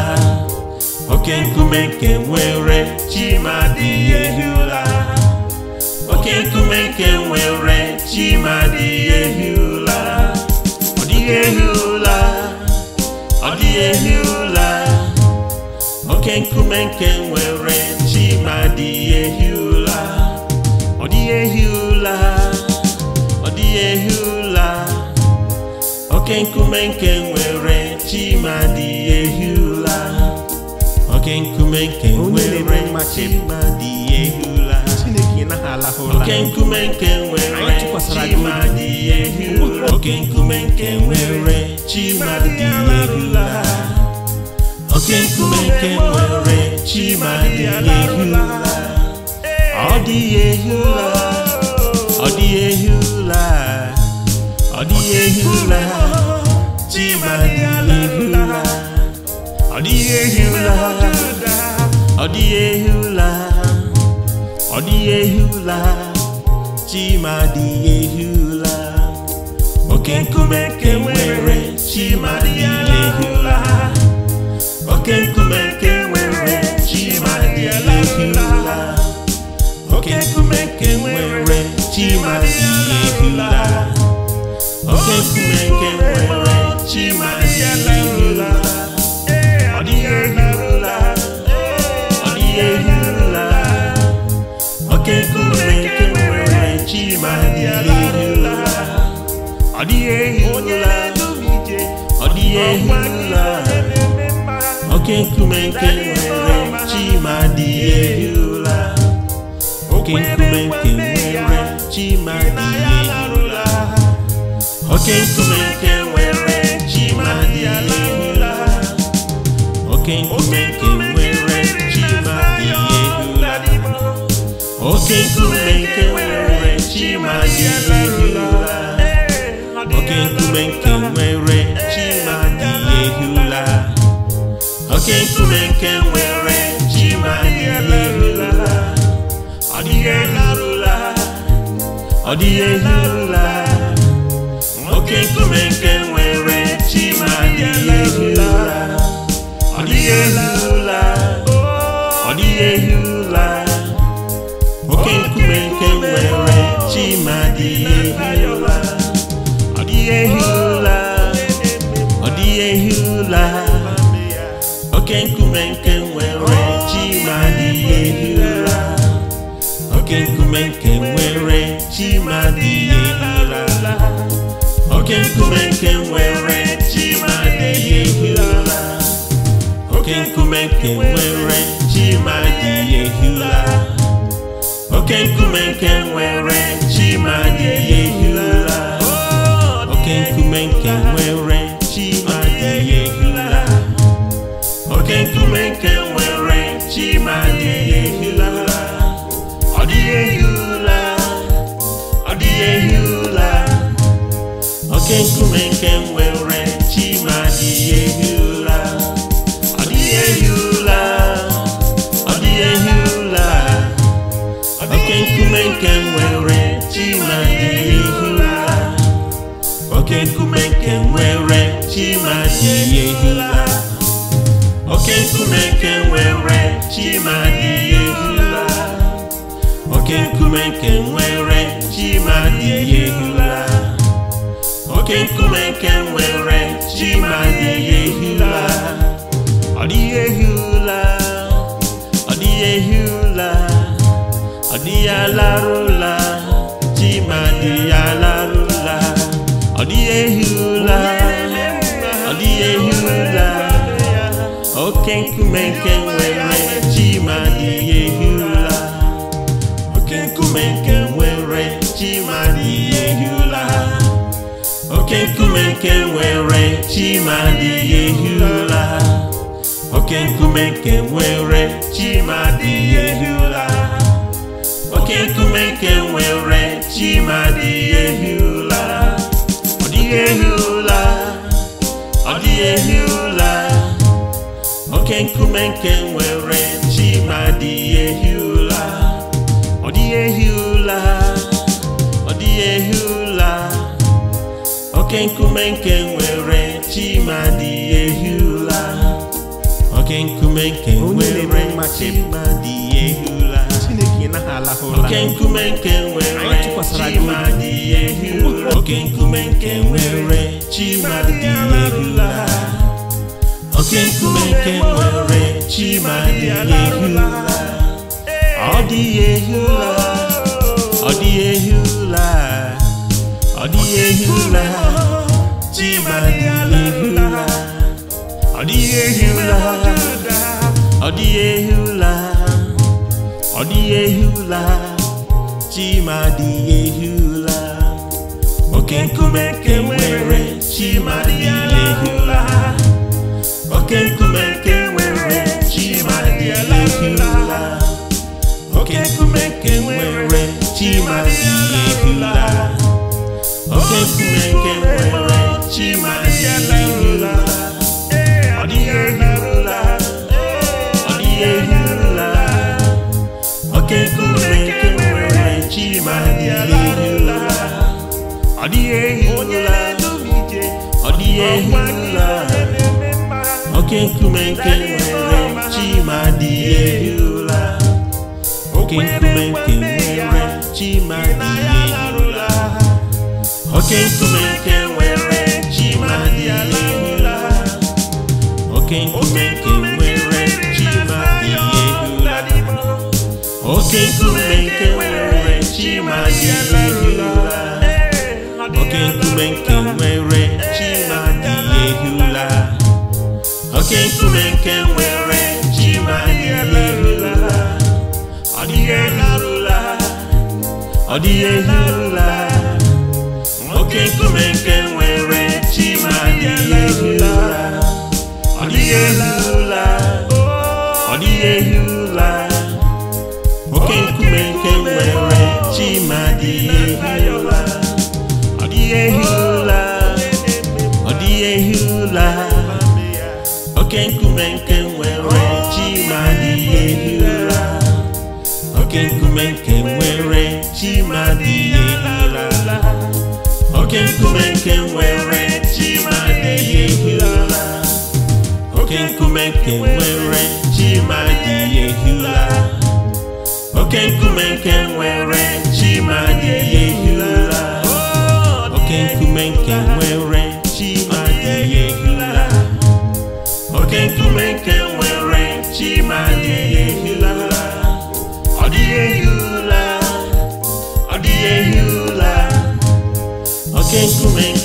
oke nkume nke nwere ehi ụla oke nkume nke nwere adịghị ehi ụla ọ oke nkume nke nwere chima adịghị ehi ụla ehi ụla oke nkume nke nwere chimadi ehi ụla oke nkume nke nwere chimadi ehi oke nkume nke nwere chimadi oke nkume nke nwere chima ehi ụla oke nkume nke nwere ọ dị ehi ọ dị ọ dịghị ehi dị ehi ọ dịghị ehi ọ dịghị ọ chima dị ehi ụra oke nkume nke nwere dị oke nkume nwere dị ehi oke nkume nwere chima dị ehi ụla. Chukwu nwere Chimaziela ọ dịghị ehirula ọ dịghị ehirula oke nkumenke nwere Chimaziela ọ dịghị ọ dịghị oke nkumenke nwere chi ma oke nkumenke nwere oke nkume nke nwere chi ma dị ehula oke nkume nke nwere chi ma dị ehula oke nkume nke nwere chi ma dị ehula oke nkume nke nwere chi ma dị ehula oke nkume nke nwere chi ma dị ehula ọ dịghị ehula ọ dịghị ehula nwoke nkume nke nwere chima adịghị ehi ọ dịghị ehi ụla ọ dịghị ehi ụla nwoke nkume nke nwere ma adịghị ehi ọ dịghị ehi ụla ọ dịghị ehi ụla oke nkume nke nkume nke nwere chi ma dị ehi ụra oke nkume nke nwere chi ma dị ehi ụra oke nkume nke nwere chi ma dị ehi ụra oke nkume nke nwere chi ma dị ehi ụra oke nkume nke nwere chi ma dị ehi ụra ọ dịghị ehi ụra ọ dịghị ehi ụra nwere adịghị oke nkume nke nwere chima adịghị ehi ụla oke nkume chima adịghị oke nkume nke nwere chima adịghị ehi oke nkume nke chima adịghị oke nkume nke nwere ji ma dịghị ehi ụla ọ dịghị ehi ụla ọ dịghị ehi ụla ọ dịghị alarụla ji ma dịghị alarụla ọ dịghị ehi ụla ọ dịghị ehi ụla oke nkume nke nke nwere oke nkume nke nwere chi ma ụla oke nkume nke nwere ehi ụla oke nkume nke nwere chimadi ehula oke nkume nke nwere chimadi ehula oke nkume nke nwere chimadi ehula oke nkume nke nwere chimadi ehula oke nkume nke nwere chimadi ehula ọ dị ehula ọ dịghị ehula ọ ụra chimadihiụra ọ dị ehi ọ dịghị ehi ọ dịghị ehi dị ehi ụra oke nkume oke nkume nke nwere chimadịghị ehi oke nkume nke nwere chimadịghị ehi ụla. oke nke nwere chimadirula ọ dịghị ọ dịghị oke nkume nwere chimadirula ọ dịghị ehirula ọ oke nwere chimadirula oke oke nkume nke nwere chi ma dị ụla. oke nkume nke nwere chi ma dị ụla. oke nkume nke nwere chi ma dị ụla. oke nkume nke nwere chi ma dị ụla. oke nkume nke nwere chi ma ehi ụla. ọ dịghị ehula ọ dịghị ehula oke nkume nke nwere chi ma ehi ụra nkume nke nwere adịghị nkume nke nwere oke nkume nke nwere chimadịyehila oke nkume nke nwere chimadịyehila oke nkume nke nwere chimadịyehila oke nkume nke nwere chimadịyehila oke nkume nke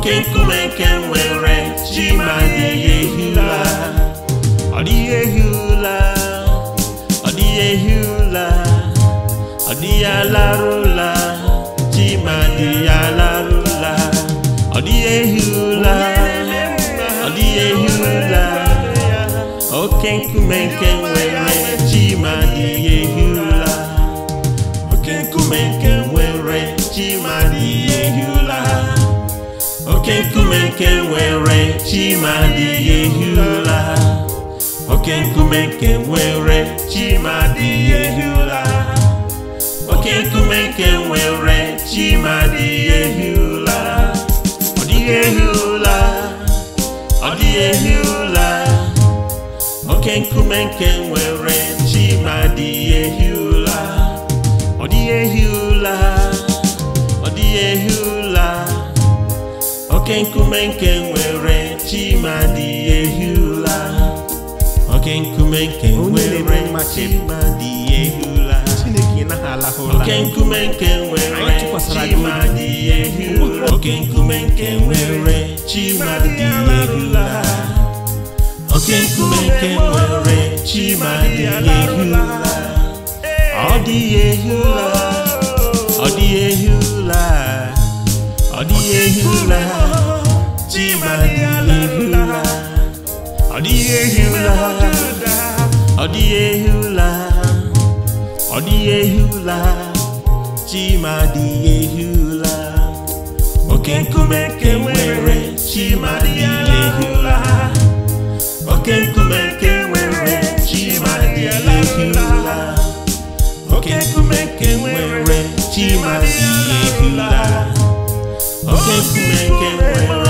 oke nkume nke nwere chi ma dịghị ehi ụla ọ dịghị ehi ụla ọ dịghị ehi ụla ọ dịghị alarụla chi ma dịghị alarụla ọ dịghị ehi ụla ọ dịghị ehi ụla oke nkume nke nwere chi ma dịghị ehi ụla oke nkume nke oke nkume nke nwere chi ma adịghị ehi ụra oke nkume nke nwere chi ma adịghị ehi ụra oke nkume nke nwere chi ma adịghị ehi ụra ọ dịghị ehi ụra ọ dịghị ehi ụra oke nkume nke nwere chi ma adịghị ehi ụra ọ dịghị ehi ụra ọ dịghị ehi ụra oke nkume nke nwere chimadi ehula oke nkume nke nwere chimadi ehula oke nkume nke nwere chimadi ehula oke nkume nke nwere chimadi ehula oke nkume nke nwere chimadi ehula ọ dịghị ehula ọ dịghị ehula ọ dịghị ehula chibadihula ọ dịghị ehi ụla ọ dịghị ehi ụla ọ dịghị ụla chima dịghị ehi ụla oke nkume dịghị ụla oke nkume chima dịghị ehi ụla chima dịghị ehi ụla oke ke nwere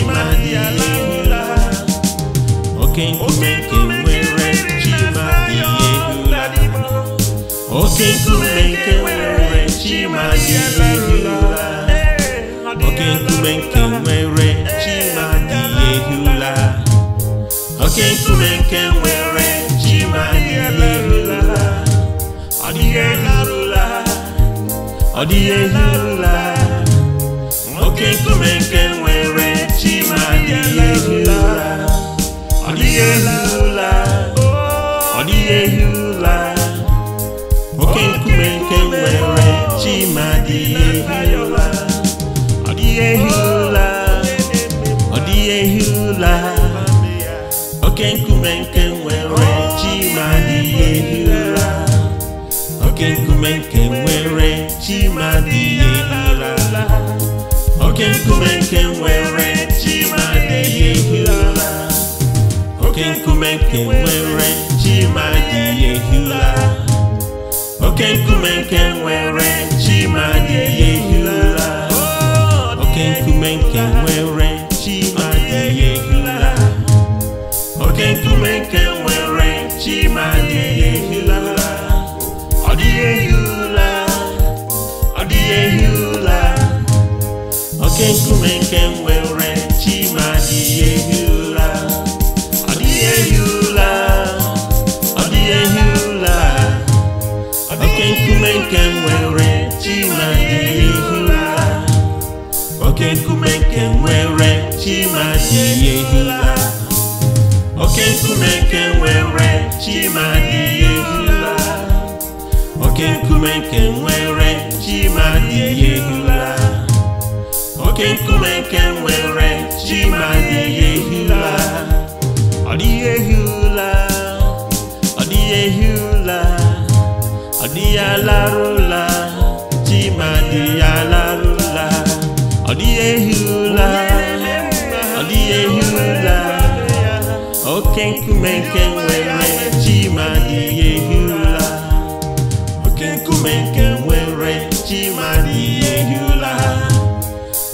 ọ dị ihe rụla nwoke nkume nke dịghị ehi ụla ọ dịghị ehi ụla oke nkume nke nwere chima dịghị ehi ụla ọ dịghị ehi ụla ọ dịghị ehi ụla oke nkume nke nwere chima dịghị ehi ụla oke nkume nke nwere chima dịghị ehi ụla oke nkume nke nwere oke nkume nke nwere chima dị ehula oke nkume nke nwere chima dị ehula oke nkume nke nwere chima dị ehula oke nkume nke nwere chima dị ehula ọ dị ehula ọ dịghị ehula oke nkume nke nwere chima chimadị ehila oke nkume nke nwere chima chimadị ehila oke nkume nke nwere chima chimadị ehila oke nkume nke nwere chima chimadị ehila ọ dịghị ehila ọ dịghị ehila ọ dịghị alarụla chimadị alarụla ọ dịghị ehila Yehula. Okenkumenke were Chima di Yehula. Okenkumenke were Chima di Yehula.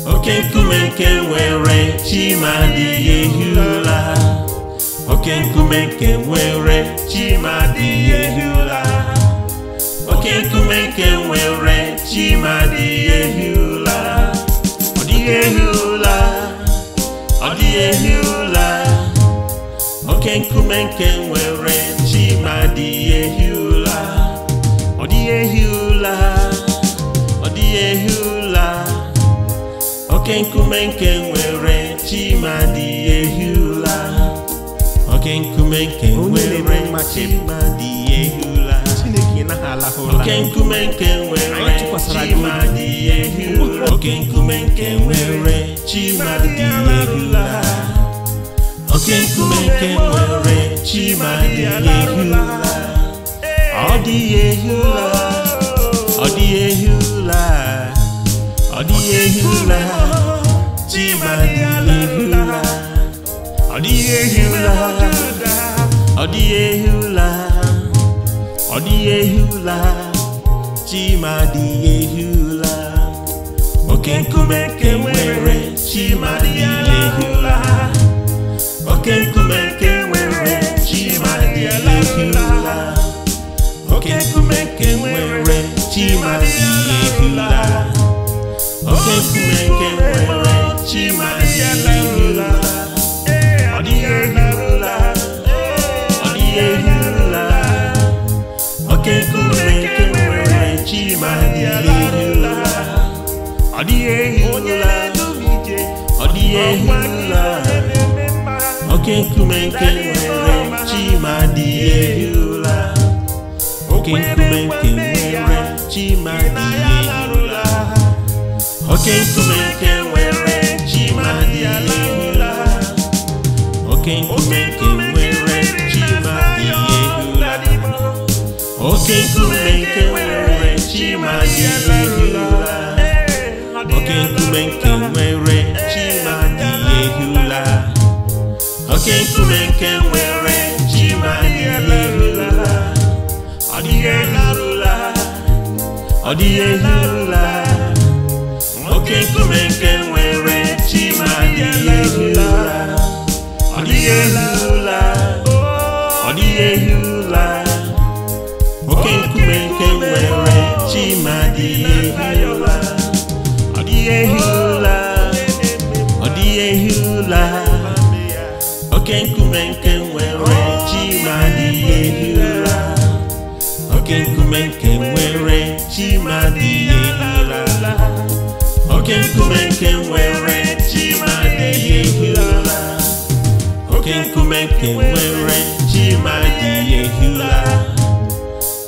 Okenkumenke were Chima di Yehula. Okenkumenke were Chima di Yehula. Okenkumenke were Chima di Yehula. di Yehula. ehi ụla ehi ụla ọ dịghị ụla ọ dịghị oke nkume nke nwere chi ma dị ehi ụla oke nkume nke nwere ma dị ehi ụla oke nkume nke nwere chimadị ehi oke nkume nke nwere chimadị ehi la oke nkume nke nwere chimadị ehi la ọ dịghị ehi la ọ dịghị ehi la ọ dịghị ehi la chimadị ehi la ọ dịghị ehi la ọ dịghị ehi la ọ dịghị ehi ụla chima dịghị ehi ụla oke nkume nke nwere chima dịghị ehi ụla oke nkume nke nwere chima dịghị ehi ụla oke nkume nke nwere chima dịghị ehi ụla oke nkume nke nwere chima dịghị ehi ụla ọ dịghị ehi ụla ọ dịghị ehi ọ dịghị oke nkume nke nwere chima dịghị ehi oke nkume nke nwere chima dịghị ehi oke nkume nke nwere chima dịghị ehi oke nkume nke nwere chima dịghị oke nkume nke nwere Chimadihula Okenkumenkenwere Chimadihula Okenkumenkenwere Chimadihula Odihula Odihula Okenkumenkenwere Chimadihula Odihula Odihula oke nkume nke nwere chi ma dị ihe ala oke nkume nke nwere chi ma dị ihe ala oke nkume nke nwere chi ma dị ihe ala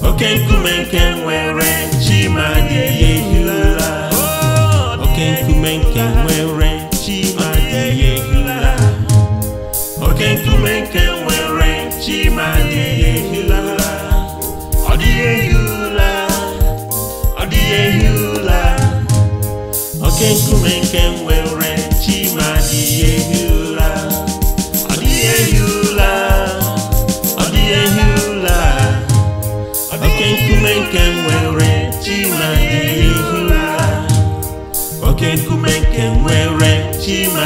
oke nkume nke nwere chi ma dị ihe ala oke nkume nke nwere nke adịghị oke nkume nke nwere chima adịghị ehi ụla nkume chima adịghị nkume nke nwere chima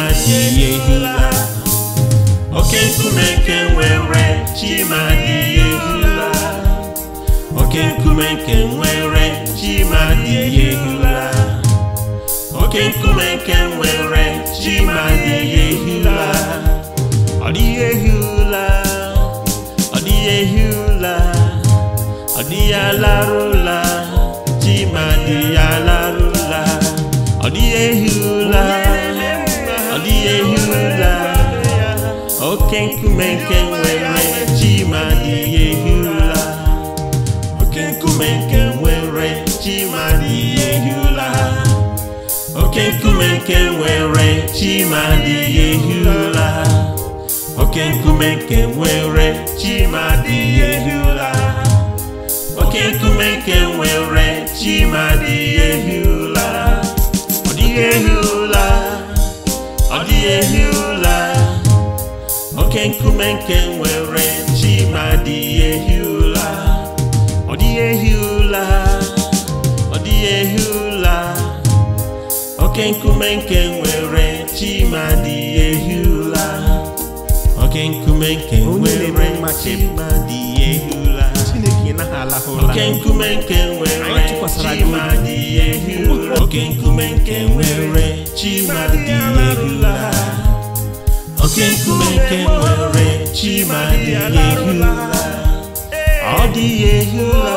adịghị nkume nke chima adịghị oke nkume nke nwere ji ma dịghị ehi ụla ọ dịghị ehi ụla ọ dịghị ehi ụla ọ dịghị alarụla ji ma dịghị alarụla ọ dịghị ehi ụla ọ dịghị ehi ụla oke nkume nke nwere ji ma dịghị ehi ụla oke nkume nke nwere ji ma dịghị ehi ụla oke nkume nke nwere chima dị ya ehi ụla oke nkume nke nwere chima dị ya ehi ụla oke nkume nke nwere chima dị ya ehi ụla ọ dịghị ehi ụla ọ dịghị ehi ụla oke nkume nke nwere chima dị ya ehi ụla ọ dịghị ehi ụla ọ dịghị ehi oke nkume nke nwere chimadi ehula oke nkume nke nwere chimadi ehula oke nkume nke nwere chimadi ehula oke nkume nke nwere chimadi ehula oke nkume nke nwere chimadi ehula ọ dịghị ehula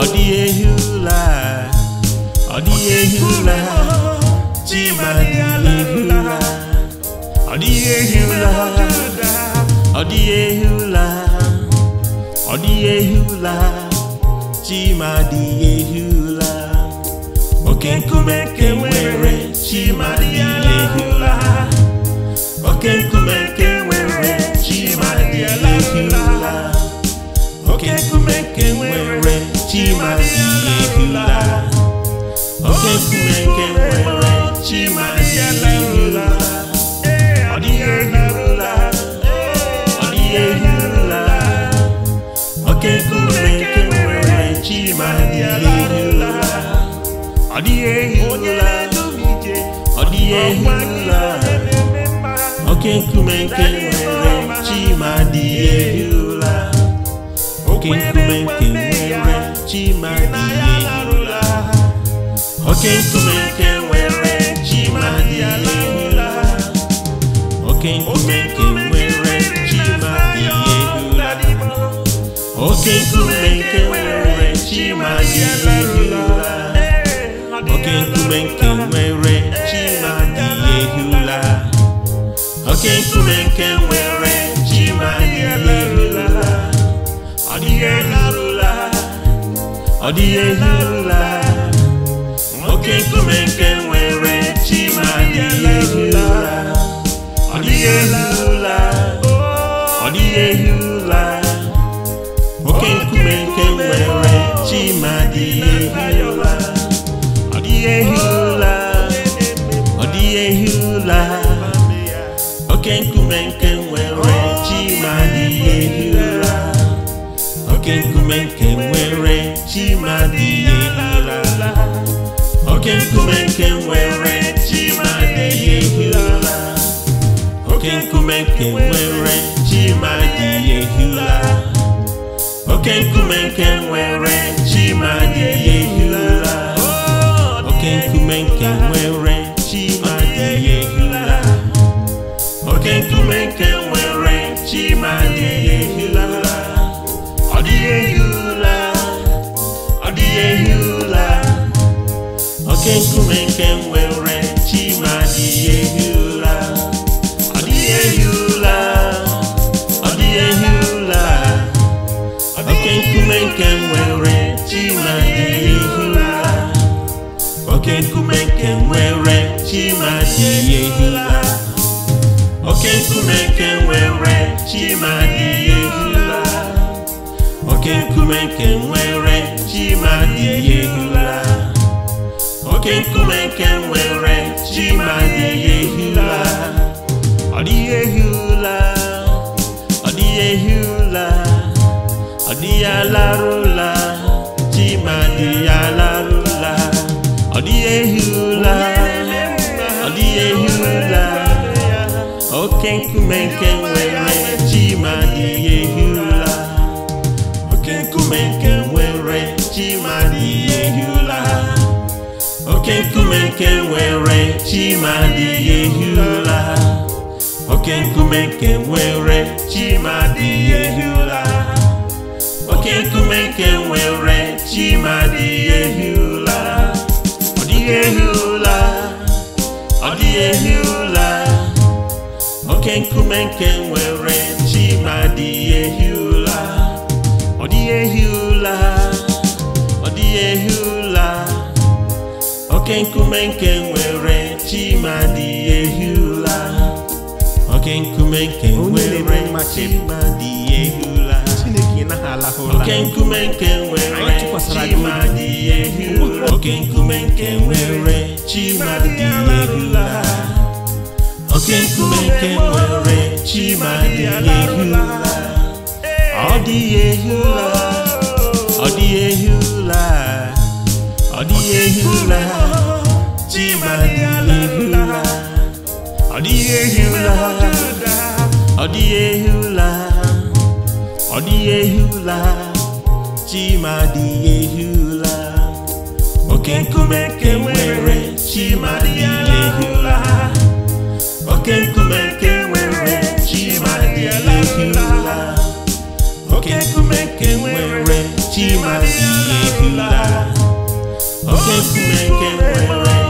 ọ dịghị ehula ọ dịghị ehula chimadiala ehi ụla ọdịghị ehi ụla ọdịghị ụlọ ụla ụla oke nkume nke nwere chimadịghị ụla oke nkume nke ọ dịghị ehi ọ dịghị ehi ụla oke nkume nke nwere ma dịghị ehi ụla oke nkume nke nwere ma dịghị ehi ụla oke nkume nke nwere ma dịghị ehi ụla oke nkume nke nwere ma dịghị ehi ụla oke nkume nke nwere oke nkume nke nwere ji ma ọ dịghị elarụla ọ dịghị elarụla oke nkume nke nwere ji ma ọ dịghị elarụla ọ dịghị elarụla oke nkume nke nwere chi ma dị ehi ụra oke nkume nke nwere chi ma dị ehi ụra oke nkume nke nwere chi ma dị ehi oke nkume nke nwere chi ma dị ehi oke nkume nke nwere chi ma dị ehi oke nkume nke nwere chima dị ehi ụra. ọ dịghị ehi ụra. ọ dịghị ehi ụla oke nkume nke nwere chima dị ehi ụla oke nkume nke nwere chima dị ehi ụra. oke nkume nke nwere chima dị ehi ụra. oke nkume nke nwere chima dị ehi ụra. oke nkume nke nwere chi ma dịghị ehi ụla ọ dịghị ehi ụla ọ dịghị ehi ụla ọ dịghị alarụla chi ma dịghị alarụla ọ dịghị ehi ụla ọ dịghị ehi ụla oke nkume nke nwere chi ma dịghị ehi ụla oke nkume nke nwere chi ma dịghị ehi ụla oke nkume nke nwere chima dị ehi ụla oke nkume nke nwere chima dị ehi ụla oke nkume nke nwere chima dị ehi ụla ọ dịghị ehi ụla ọ dịghị ehi ụla oke nkume nke nwere chima dị ehi ụla ọ dịghị ehi ụla ọ dịghị ehi ụla oke nkume nke nwere chimadi ehi ụla oke nkume nke nwere chimadi ehi ụla chineke naghị oke nkume nke nwere chimadi ehi ụla oke nkume nke nwere chimadi ehi ụla oke nkume nke nwere chimadi ehi ụla ọ dịghị ehi ụla ọ dịghị ehi ụla ọ dịghị ehi ụla chimadịla ọ dịghị ehi ụla ọ dịghị ehi ụla ọ dịghị ehi ụla chimadịghị ehi ụla oke nkume nke nwere chimadịghị ụla oke nkume nke nwere chimadịghị ụla oke nkume nke nwere ụla oke nkume nwere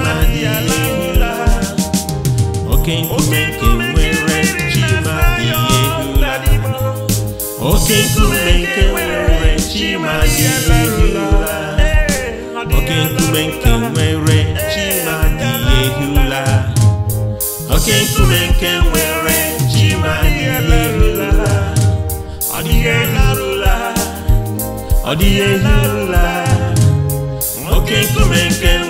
oke nkume nke nwere chi ma dị ehi oke nkume nke nwere chi ma dị ehi ụla oke nkume nke nwere chi ma dị ehi ụla ọ dịghị elarụla ọ dịghị ehi ụla oke nkume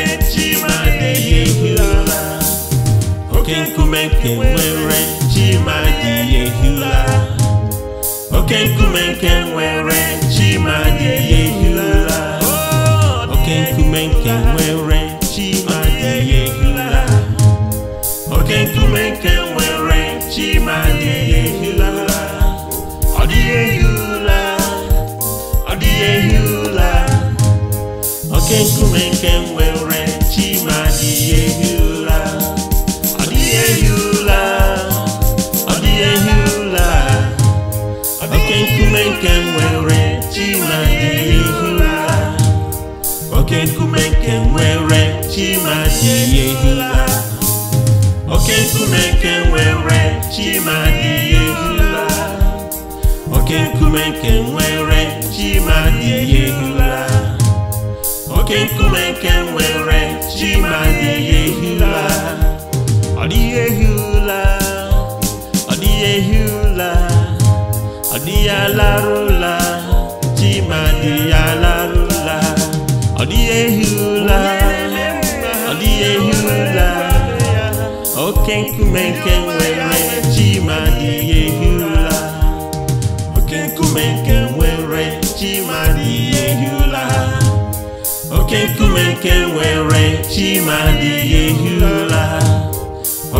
oke nkume nke nwere chima dị ehula oke nkume nke nwere chima dị ehula oke nkume nke nwere chima dị ehula oke nkume nke nwere chima dị ehula ọ dịghị ehula ọ dịghị ehula oke nkume nke nwere chima dị ehula chimadị ehila oke nkume nke nwere chimadị ehila oke nkume nke nwere chimadị ehila oke nkume nke nwere chimadị ehila ọ dịghị ehila ọ dịghị ehila ọ dịghị alarụla chimadị alarụla ọ dịghị ehila oke nkume nke nwere chima dị ihe hi ụla oke nkume nke nwere chima dị ihe hi ụla oke nkume nke nwere chima dị ihe hi ụla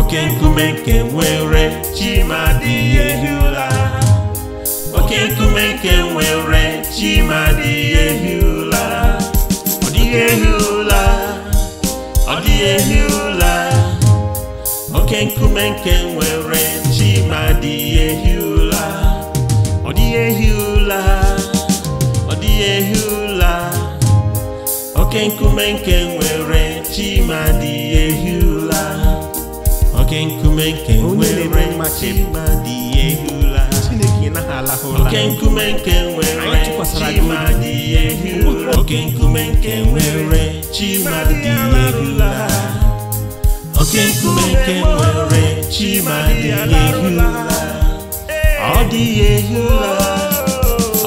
oke nkume nke nwere chima dị ihe hi ụla oke nkume nke nwere chima dị ihe hi ụla ọ dịghị ehi ụla ọ dịghị ehi ụla oke nkume nke nwere chi ma dị ehi ụla ọ dị ehi ụla ọ dị ehi ụla oke nkume nke nwere chi ma dị ehi ụla oke nkume nke nwere chi ma dị ehi ụla oke nkume nke nwere chi ma dị ehi ụla oke nkume nke nwere chi ma ehi ụla oke nkume nke nwere chi ma dịghị ehi ụla ọ dịghị ehi ụla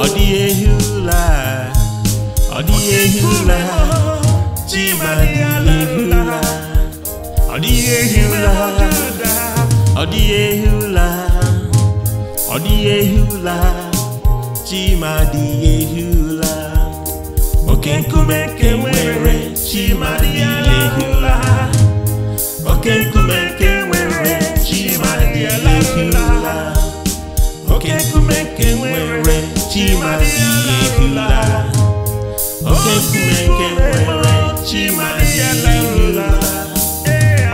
ọ dịghị ehi ụla ọ dịghị ehi ụla chi ma dịghị ehi ụla ọ dịghị ehi ụla ọ dịghị ehi ụla ọ dịghị ehi ụla dịghị ehi ụla oke nkume nke nwere okekume nkume nke nwere chima dị ehi ụla oke nkume nke nwere chima dị ehi ụla oke nkume nke nwere chima dị ehi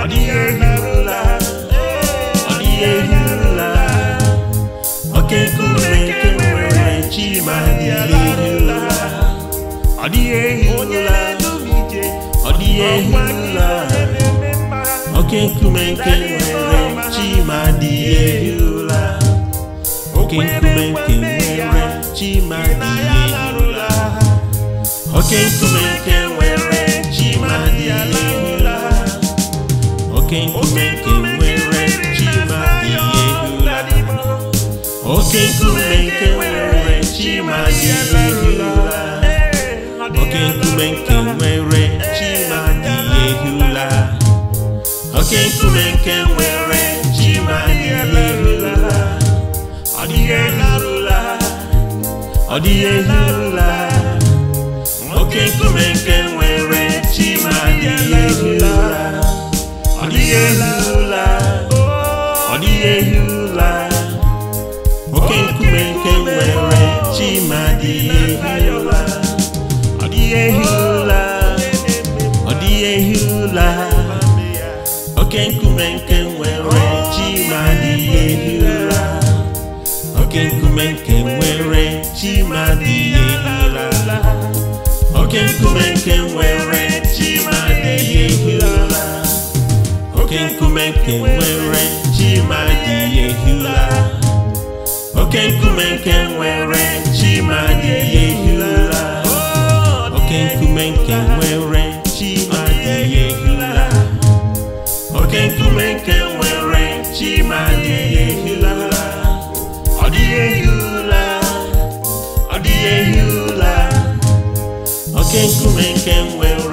ọ dịghị ehi ọ dịghị ehi ụla oke nkume nke nwere chima dị ehi ụla ọ dịghị ehi ọ dịghị ehi o Oke kumenke nwere Chimadi ehula Oke kumenke nwere Chimadi que Oke o nwere Chimadi ehula Oke kumenke nwere Chimadi ehula Oke kumenke nwere Chimadi ehula Oke kumenke nke nwere chi ma ọ dịghị elerụla ọ oke nkume nke nwere chi ma ọ dịghị ọ dịghị oke nkume nke nwere chi ma ọ oke nkume nke nwere chi ma dị ehi ụra oke nkume nke nwere chi ma dị ehi ụra oke nkume nke nwere chi ma dị ehi ụra oke nkume nke nwere chi ma dị ehi oke nkume nke nwere chi ma dị ehi oke nkume nke nwere nkume nwere chima adịghị ehila ọ dịghị ehi ọ dịghị ehi ụla oke nkume nwere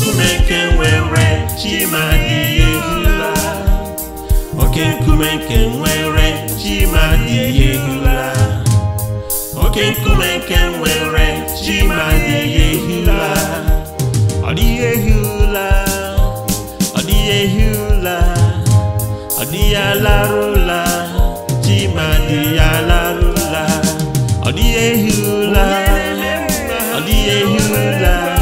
nkume nwere oke nkume nke nwere chi oke nkume nke nwere ọ dịghị ehi ọ dịghị ehi ụla ọ dịghị alarụla ọ dịghị ehi ọ dịghị ehi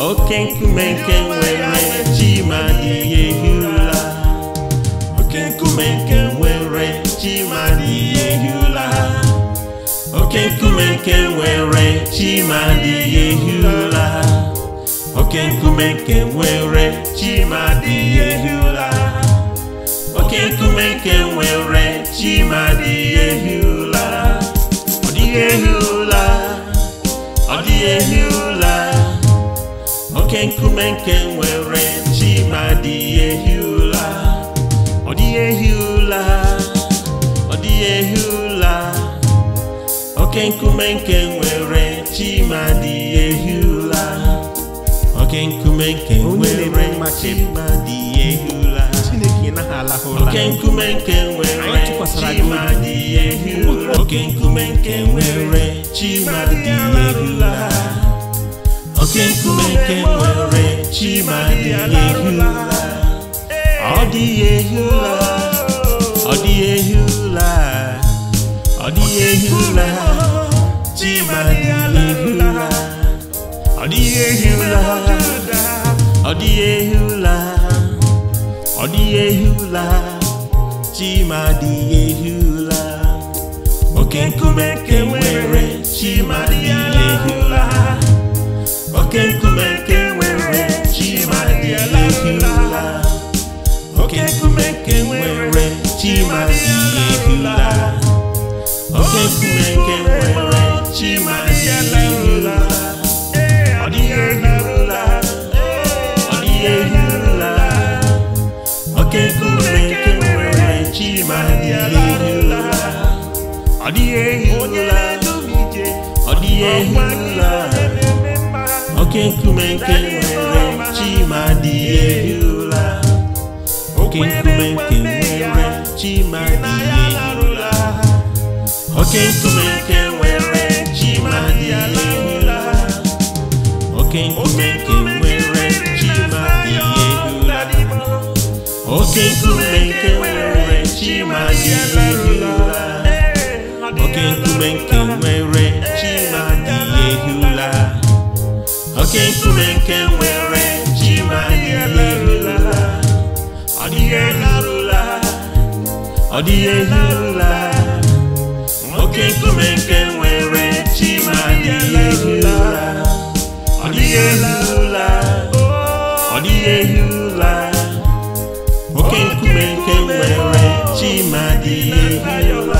oke nkume nke nwere chimadi ehi ụla oke nkume nke nwere chimadi ehi ụla oke nkume nke nwere chimadi ehi ụla oke nkume nke nwere chimadi ehi ụla oke nkume nke nwere chimadi ehi ụla ọ dịghị ehi ụla ọ dịghị ehi ụla oke nkume nke nwere chi ma dị ehi ụla ọ dị ehi ụla ọ dị ehi ụla oke nkume nke nwere chi ma dị ehi ụla oke nkume nke nwere chi ma dị ehi ụla oke nkume nke nwere chi ma dị ụla oke nkume nke nwere chi ma ehi ụla oke nkume nke nwere chima dịghị ehi ụla ọ dịghị ehi ụla ọ dịghị ehi ụla ọ dịghị ehi ụla chima dịghị ehi ụla ọ dịghị ehi ụla ọ dịghị ehi ụla ọ dịghị ehi ụla chima dịghị ehi ụla oke nkume nke nwere chima dịghị ehi ụla okekume oke nkume nke nwere chimadịehula oke nkume nke nwere chimadịehula oke nkume nke nwere chimadịehula ọ dịghị ehihula ọ dịghị ehihula oke nkume nke nwere chimadịehula ọ dịghị ehihula ọ dịghị ehihula oke nkume nke nwere chimadị erula oke nkume nke nwere chimadị erula oke nkume nke nwere chimadị erula oke nkume nke nwere chimadị erula oke nkume nke nwere chimadị erula oke nkume nke oke nkume nke nwere ji ma ọ dịghị nke nwere ji oke nkume nke nwere ji ma dịghị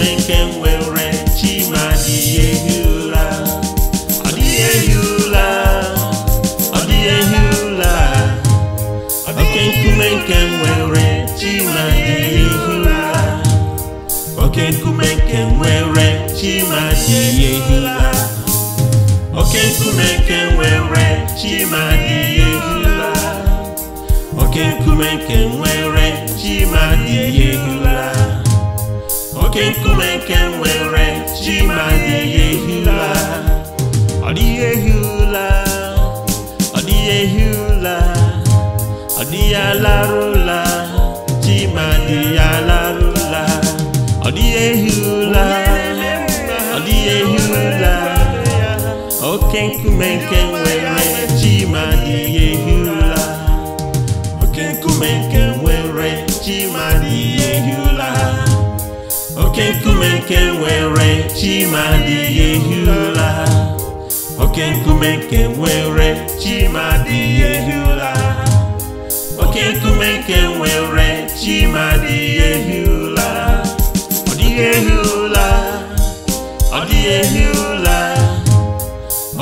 nke nwere chi ma adịghị oke nkume nke nwere chi ma adịghị ehi ụra oke nkume nke nkume nke nwere chi ma ụra oke nkume nke nwere chi ma oke nkume nke nwere ji ma dịghị ehi ụla ọ dịghị ehi ụla ọ dịghị ehi ụla ọ dịghị alarụla ji ma dịghị alarụla ọ dịghị ehi ụla ọ dịghị ehi ụla oke nkume nke nwere ji ma dịghị ehi ụla oke nkume nke nwere ji ma oke nkume nke nwere chi ma adịghị ehi ụra oke nkume nke nwere chi ma adịghị ehi ụra oke nkume nke nwere chi ma adịghị ehi ụra ọ dịghị ehi ụra ọ dịghị ehi ụra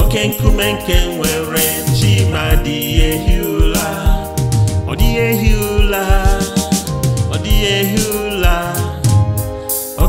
oke nkume nke nwere chi ma adịghị ehi ụra ọ dịghị ehi ụra ọ dịghị ehi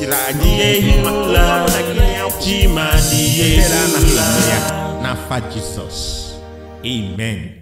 Siladiye la Timadiye la Na fadisos Amen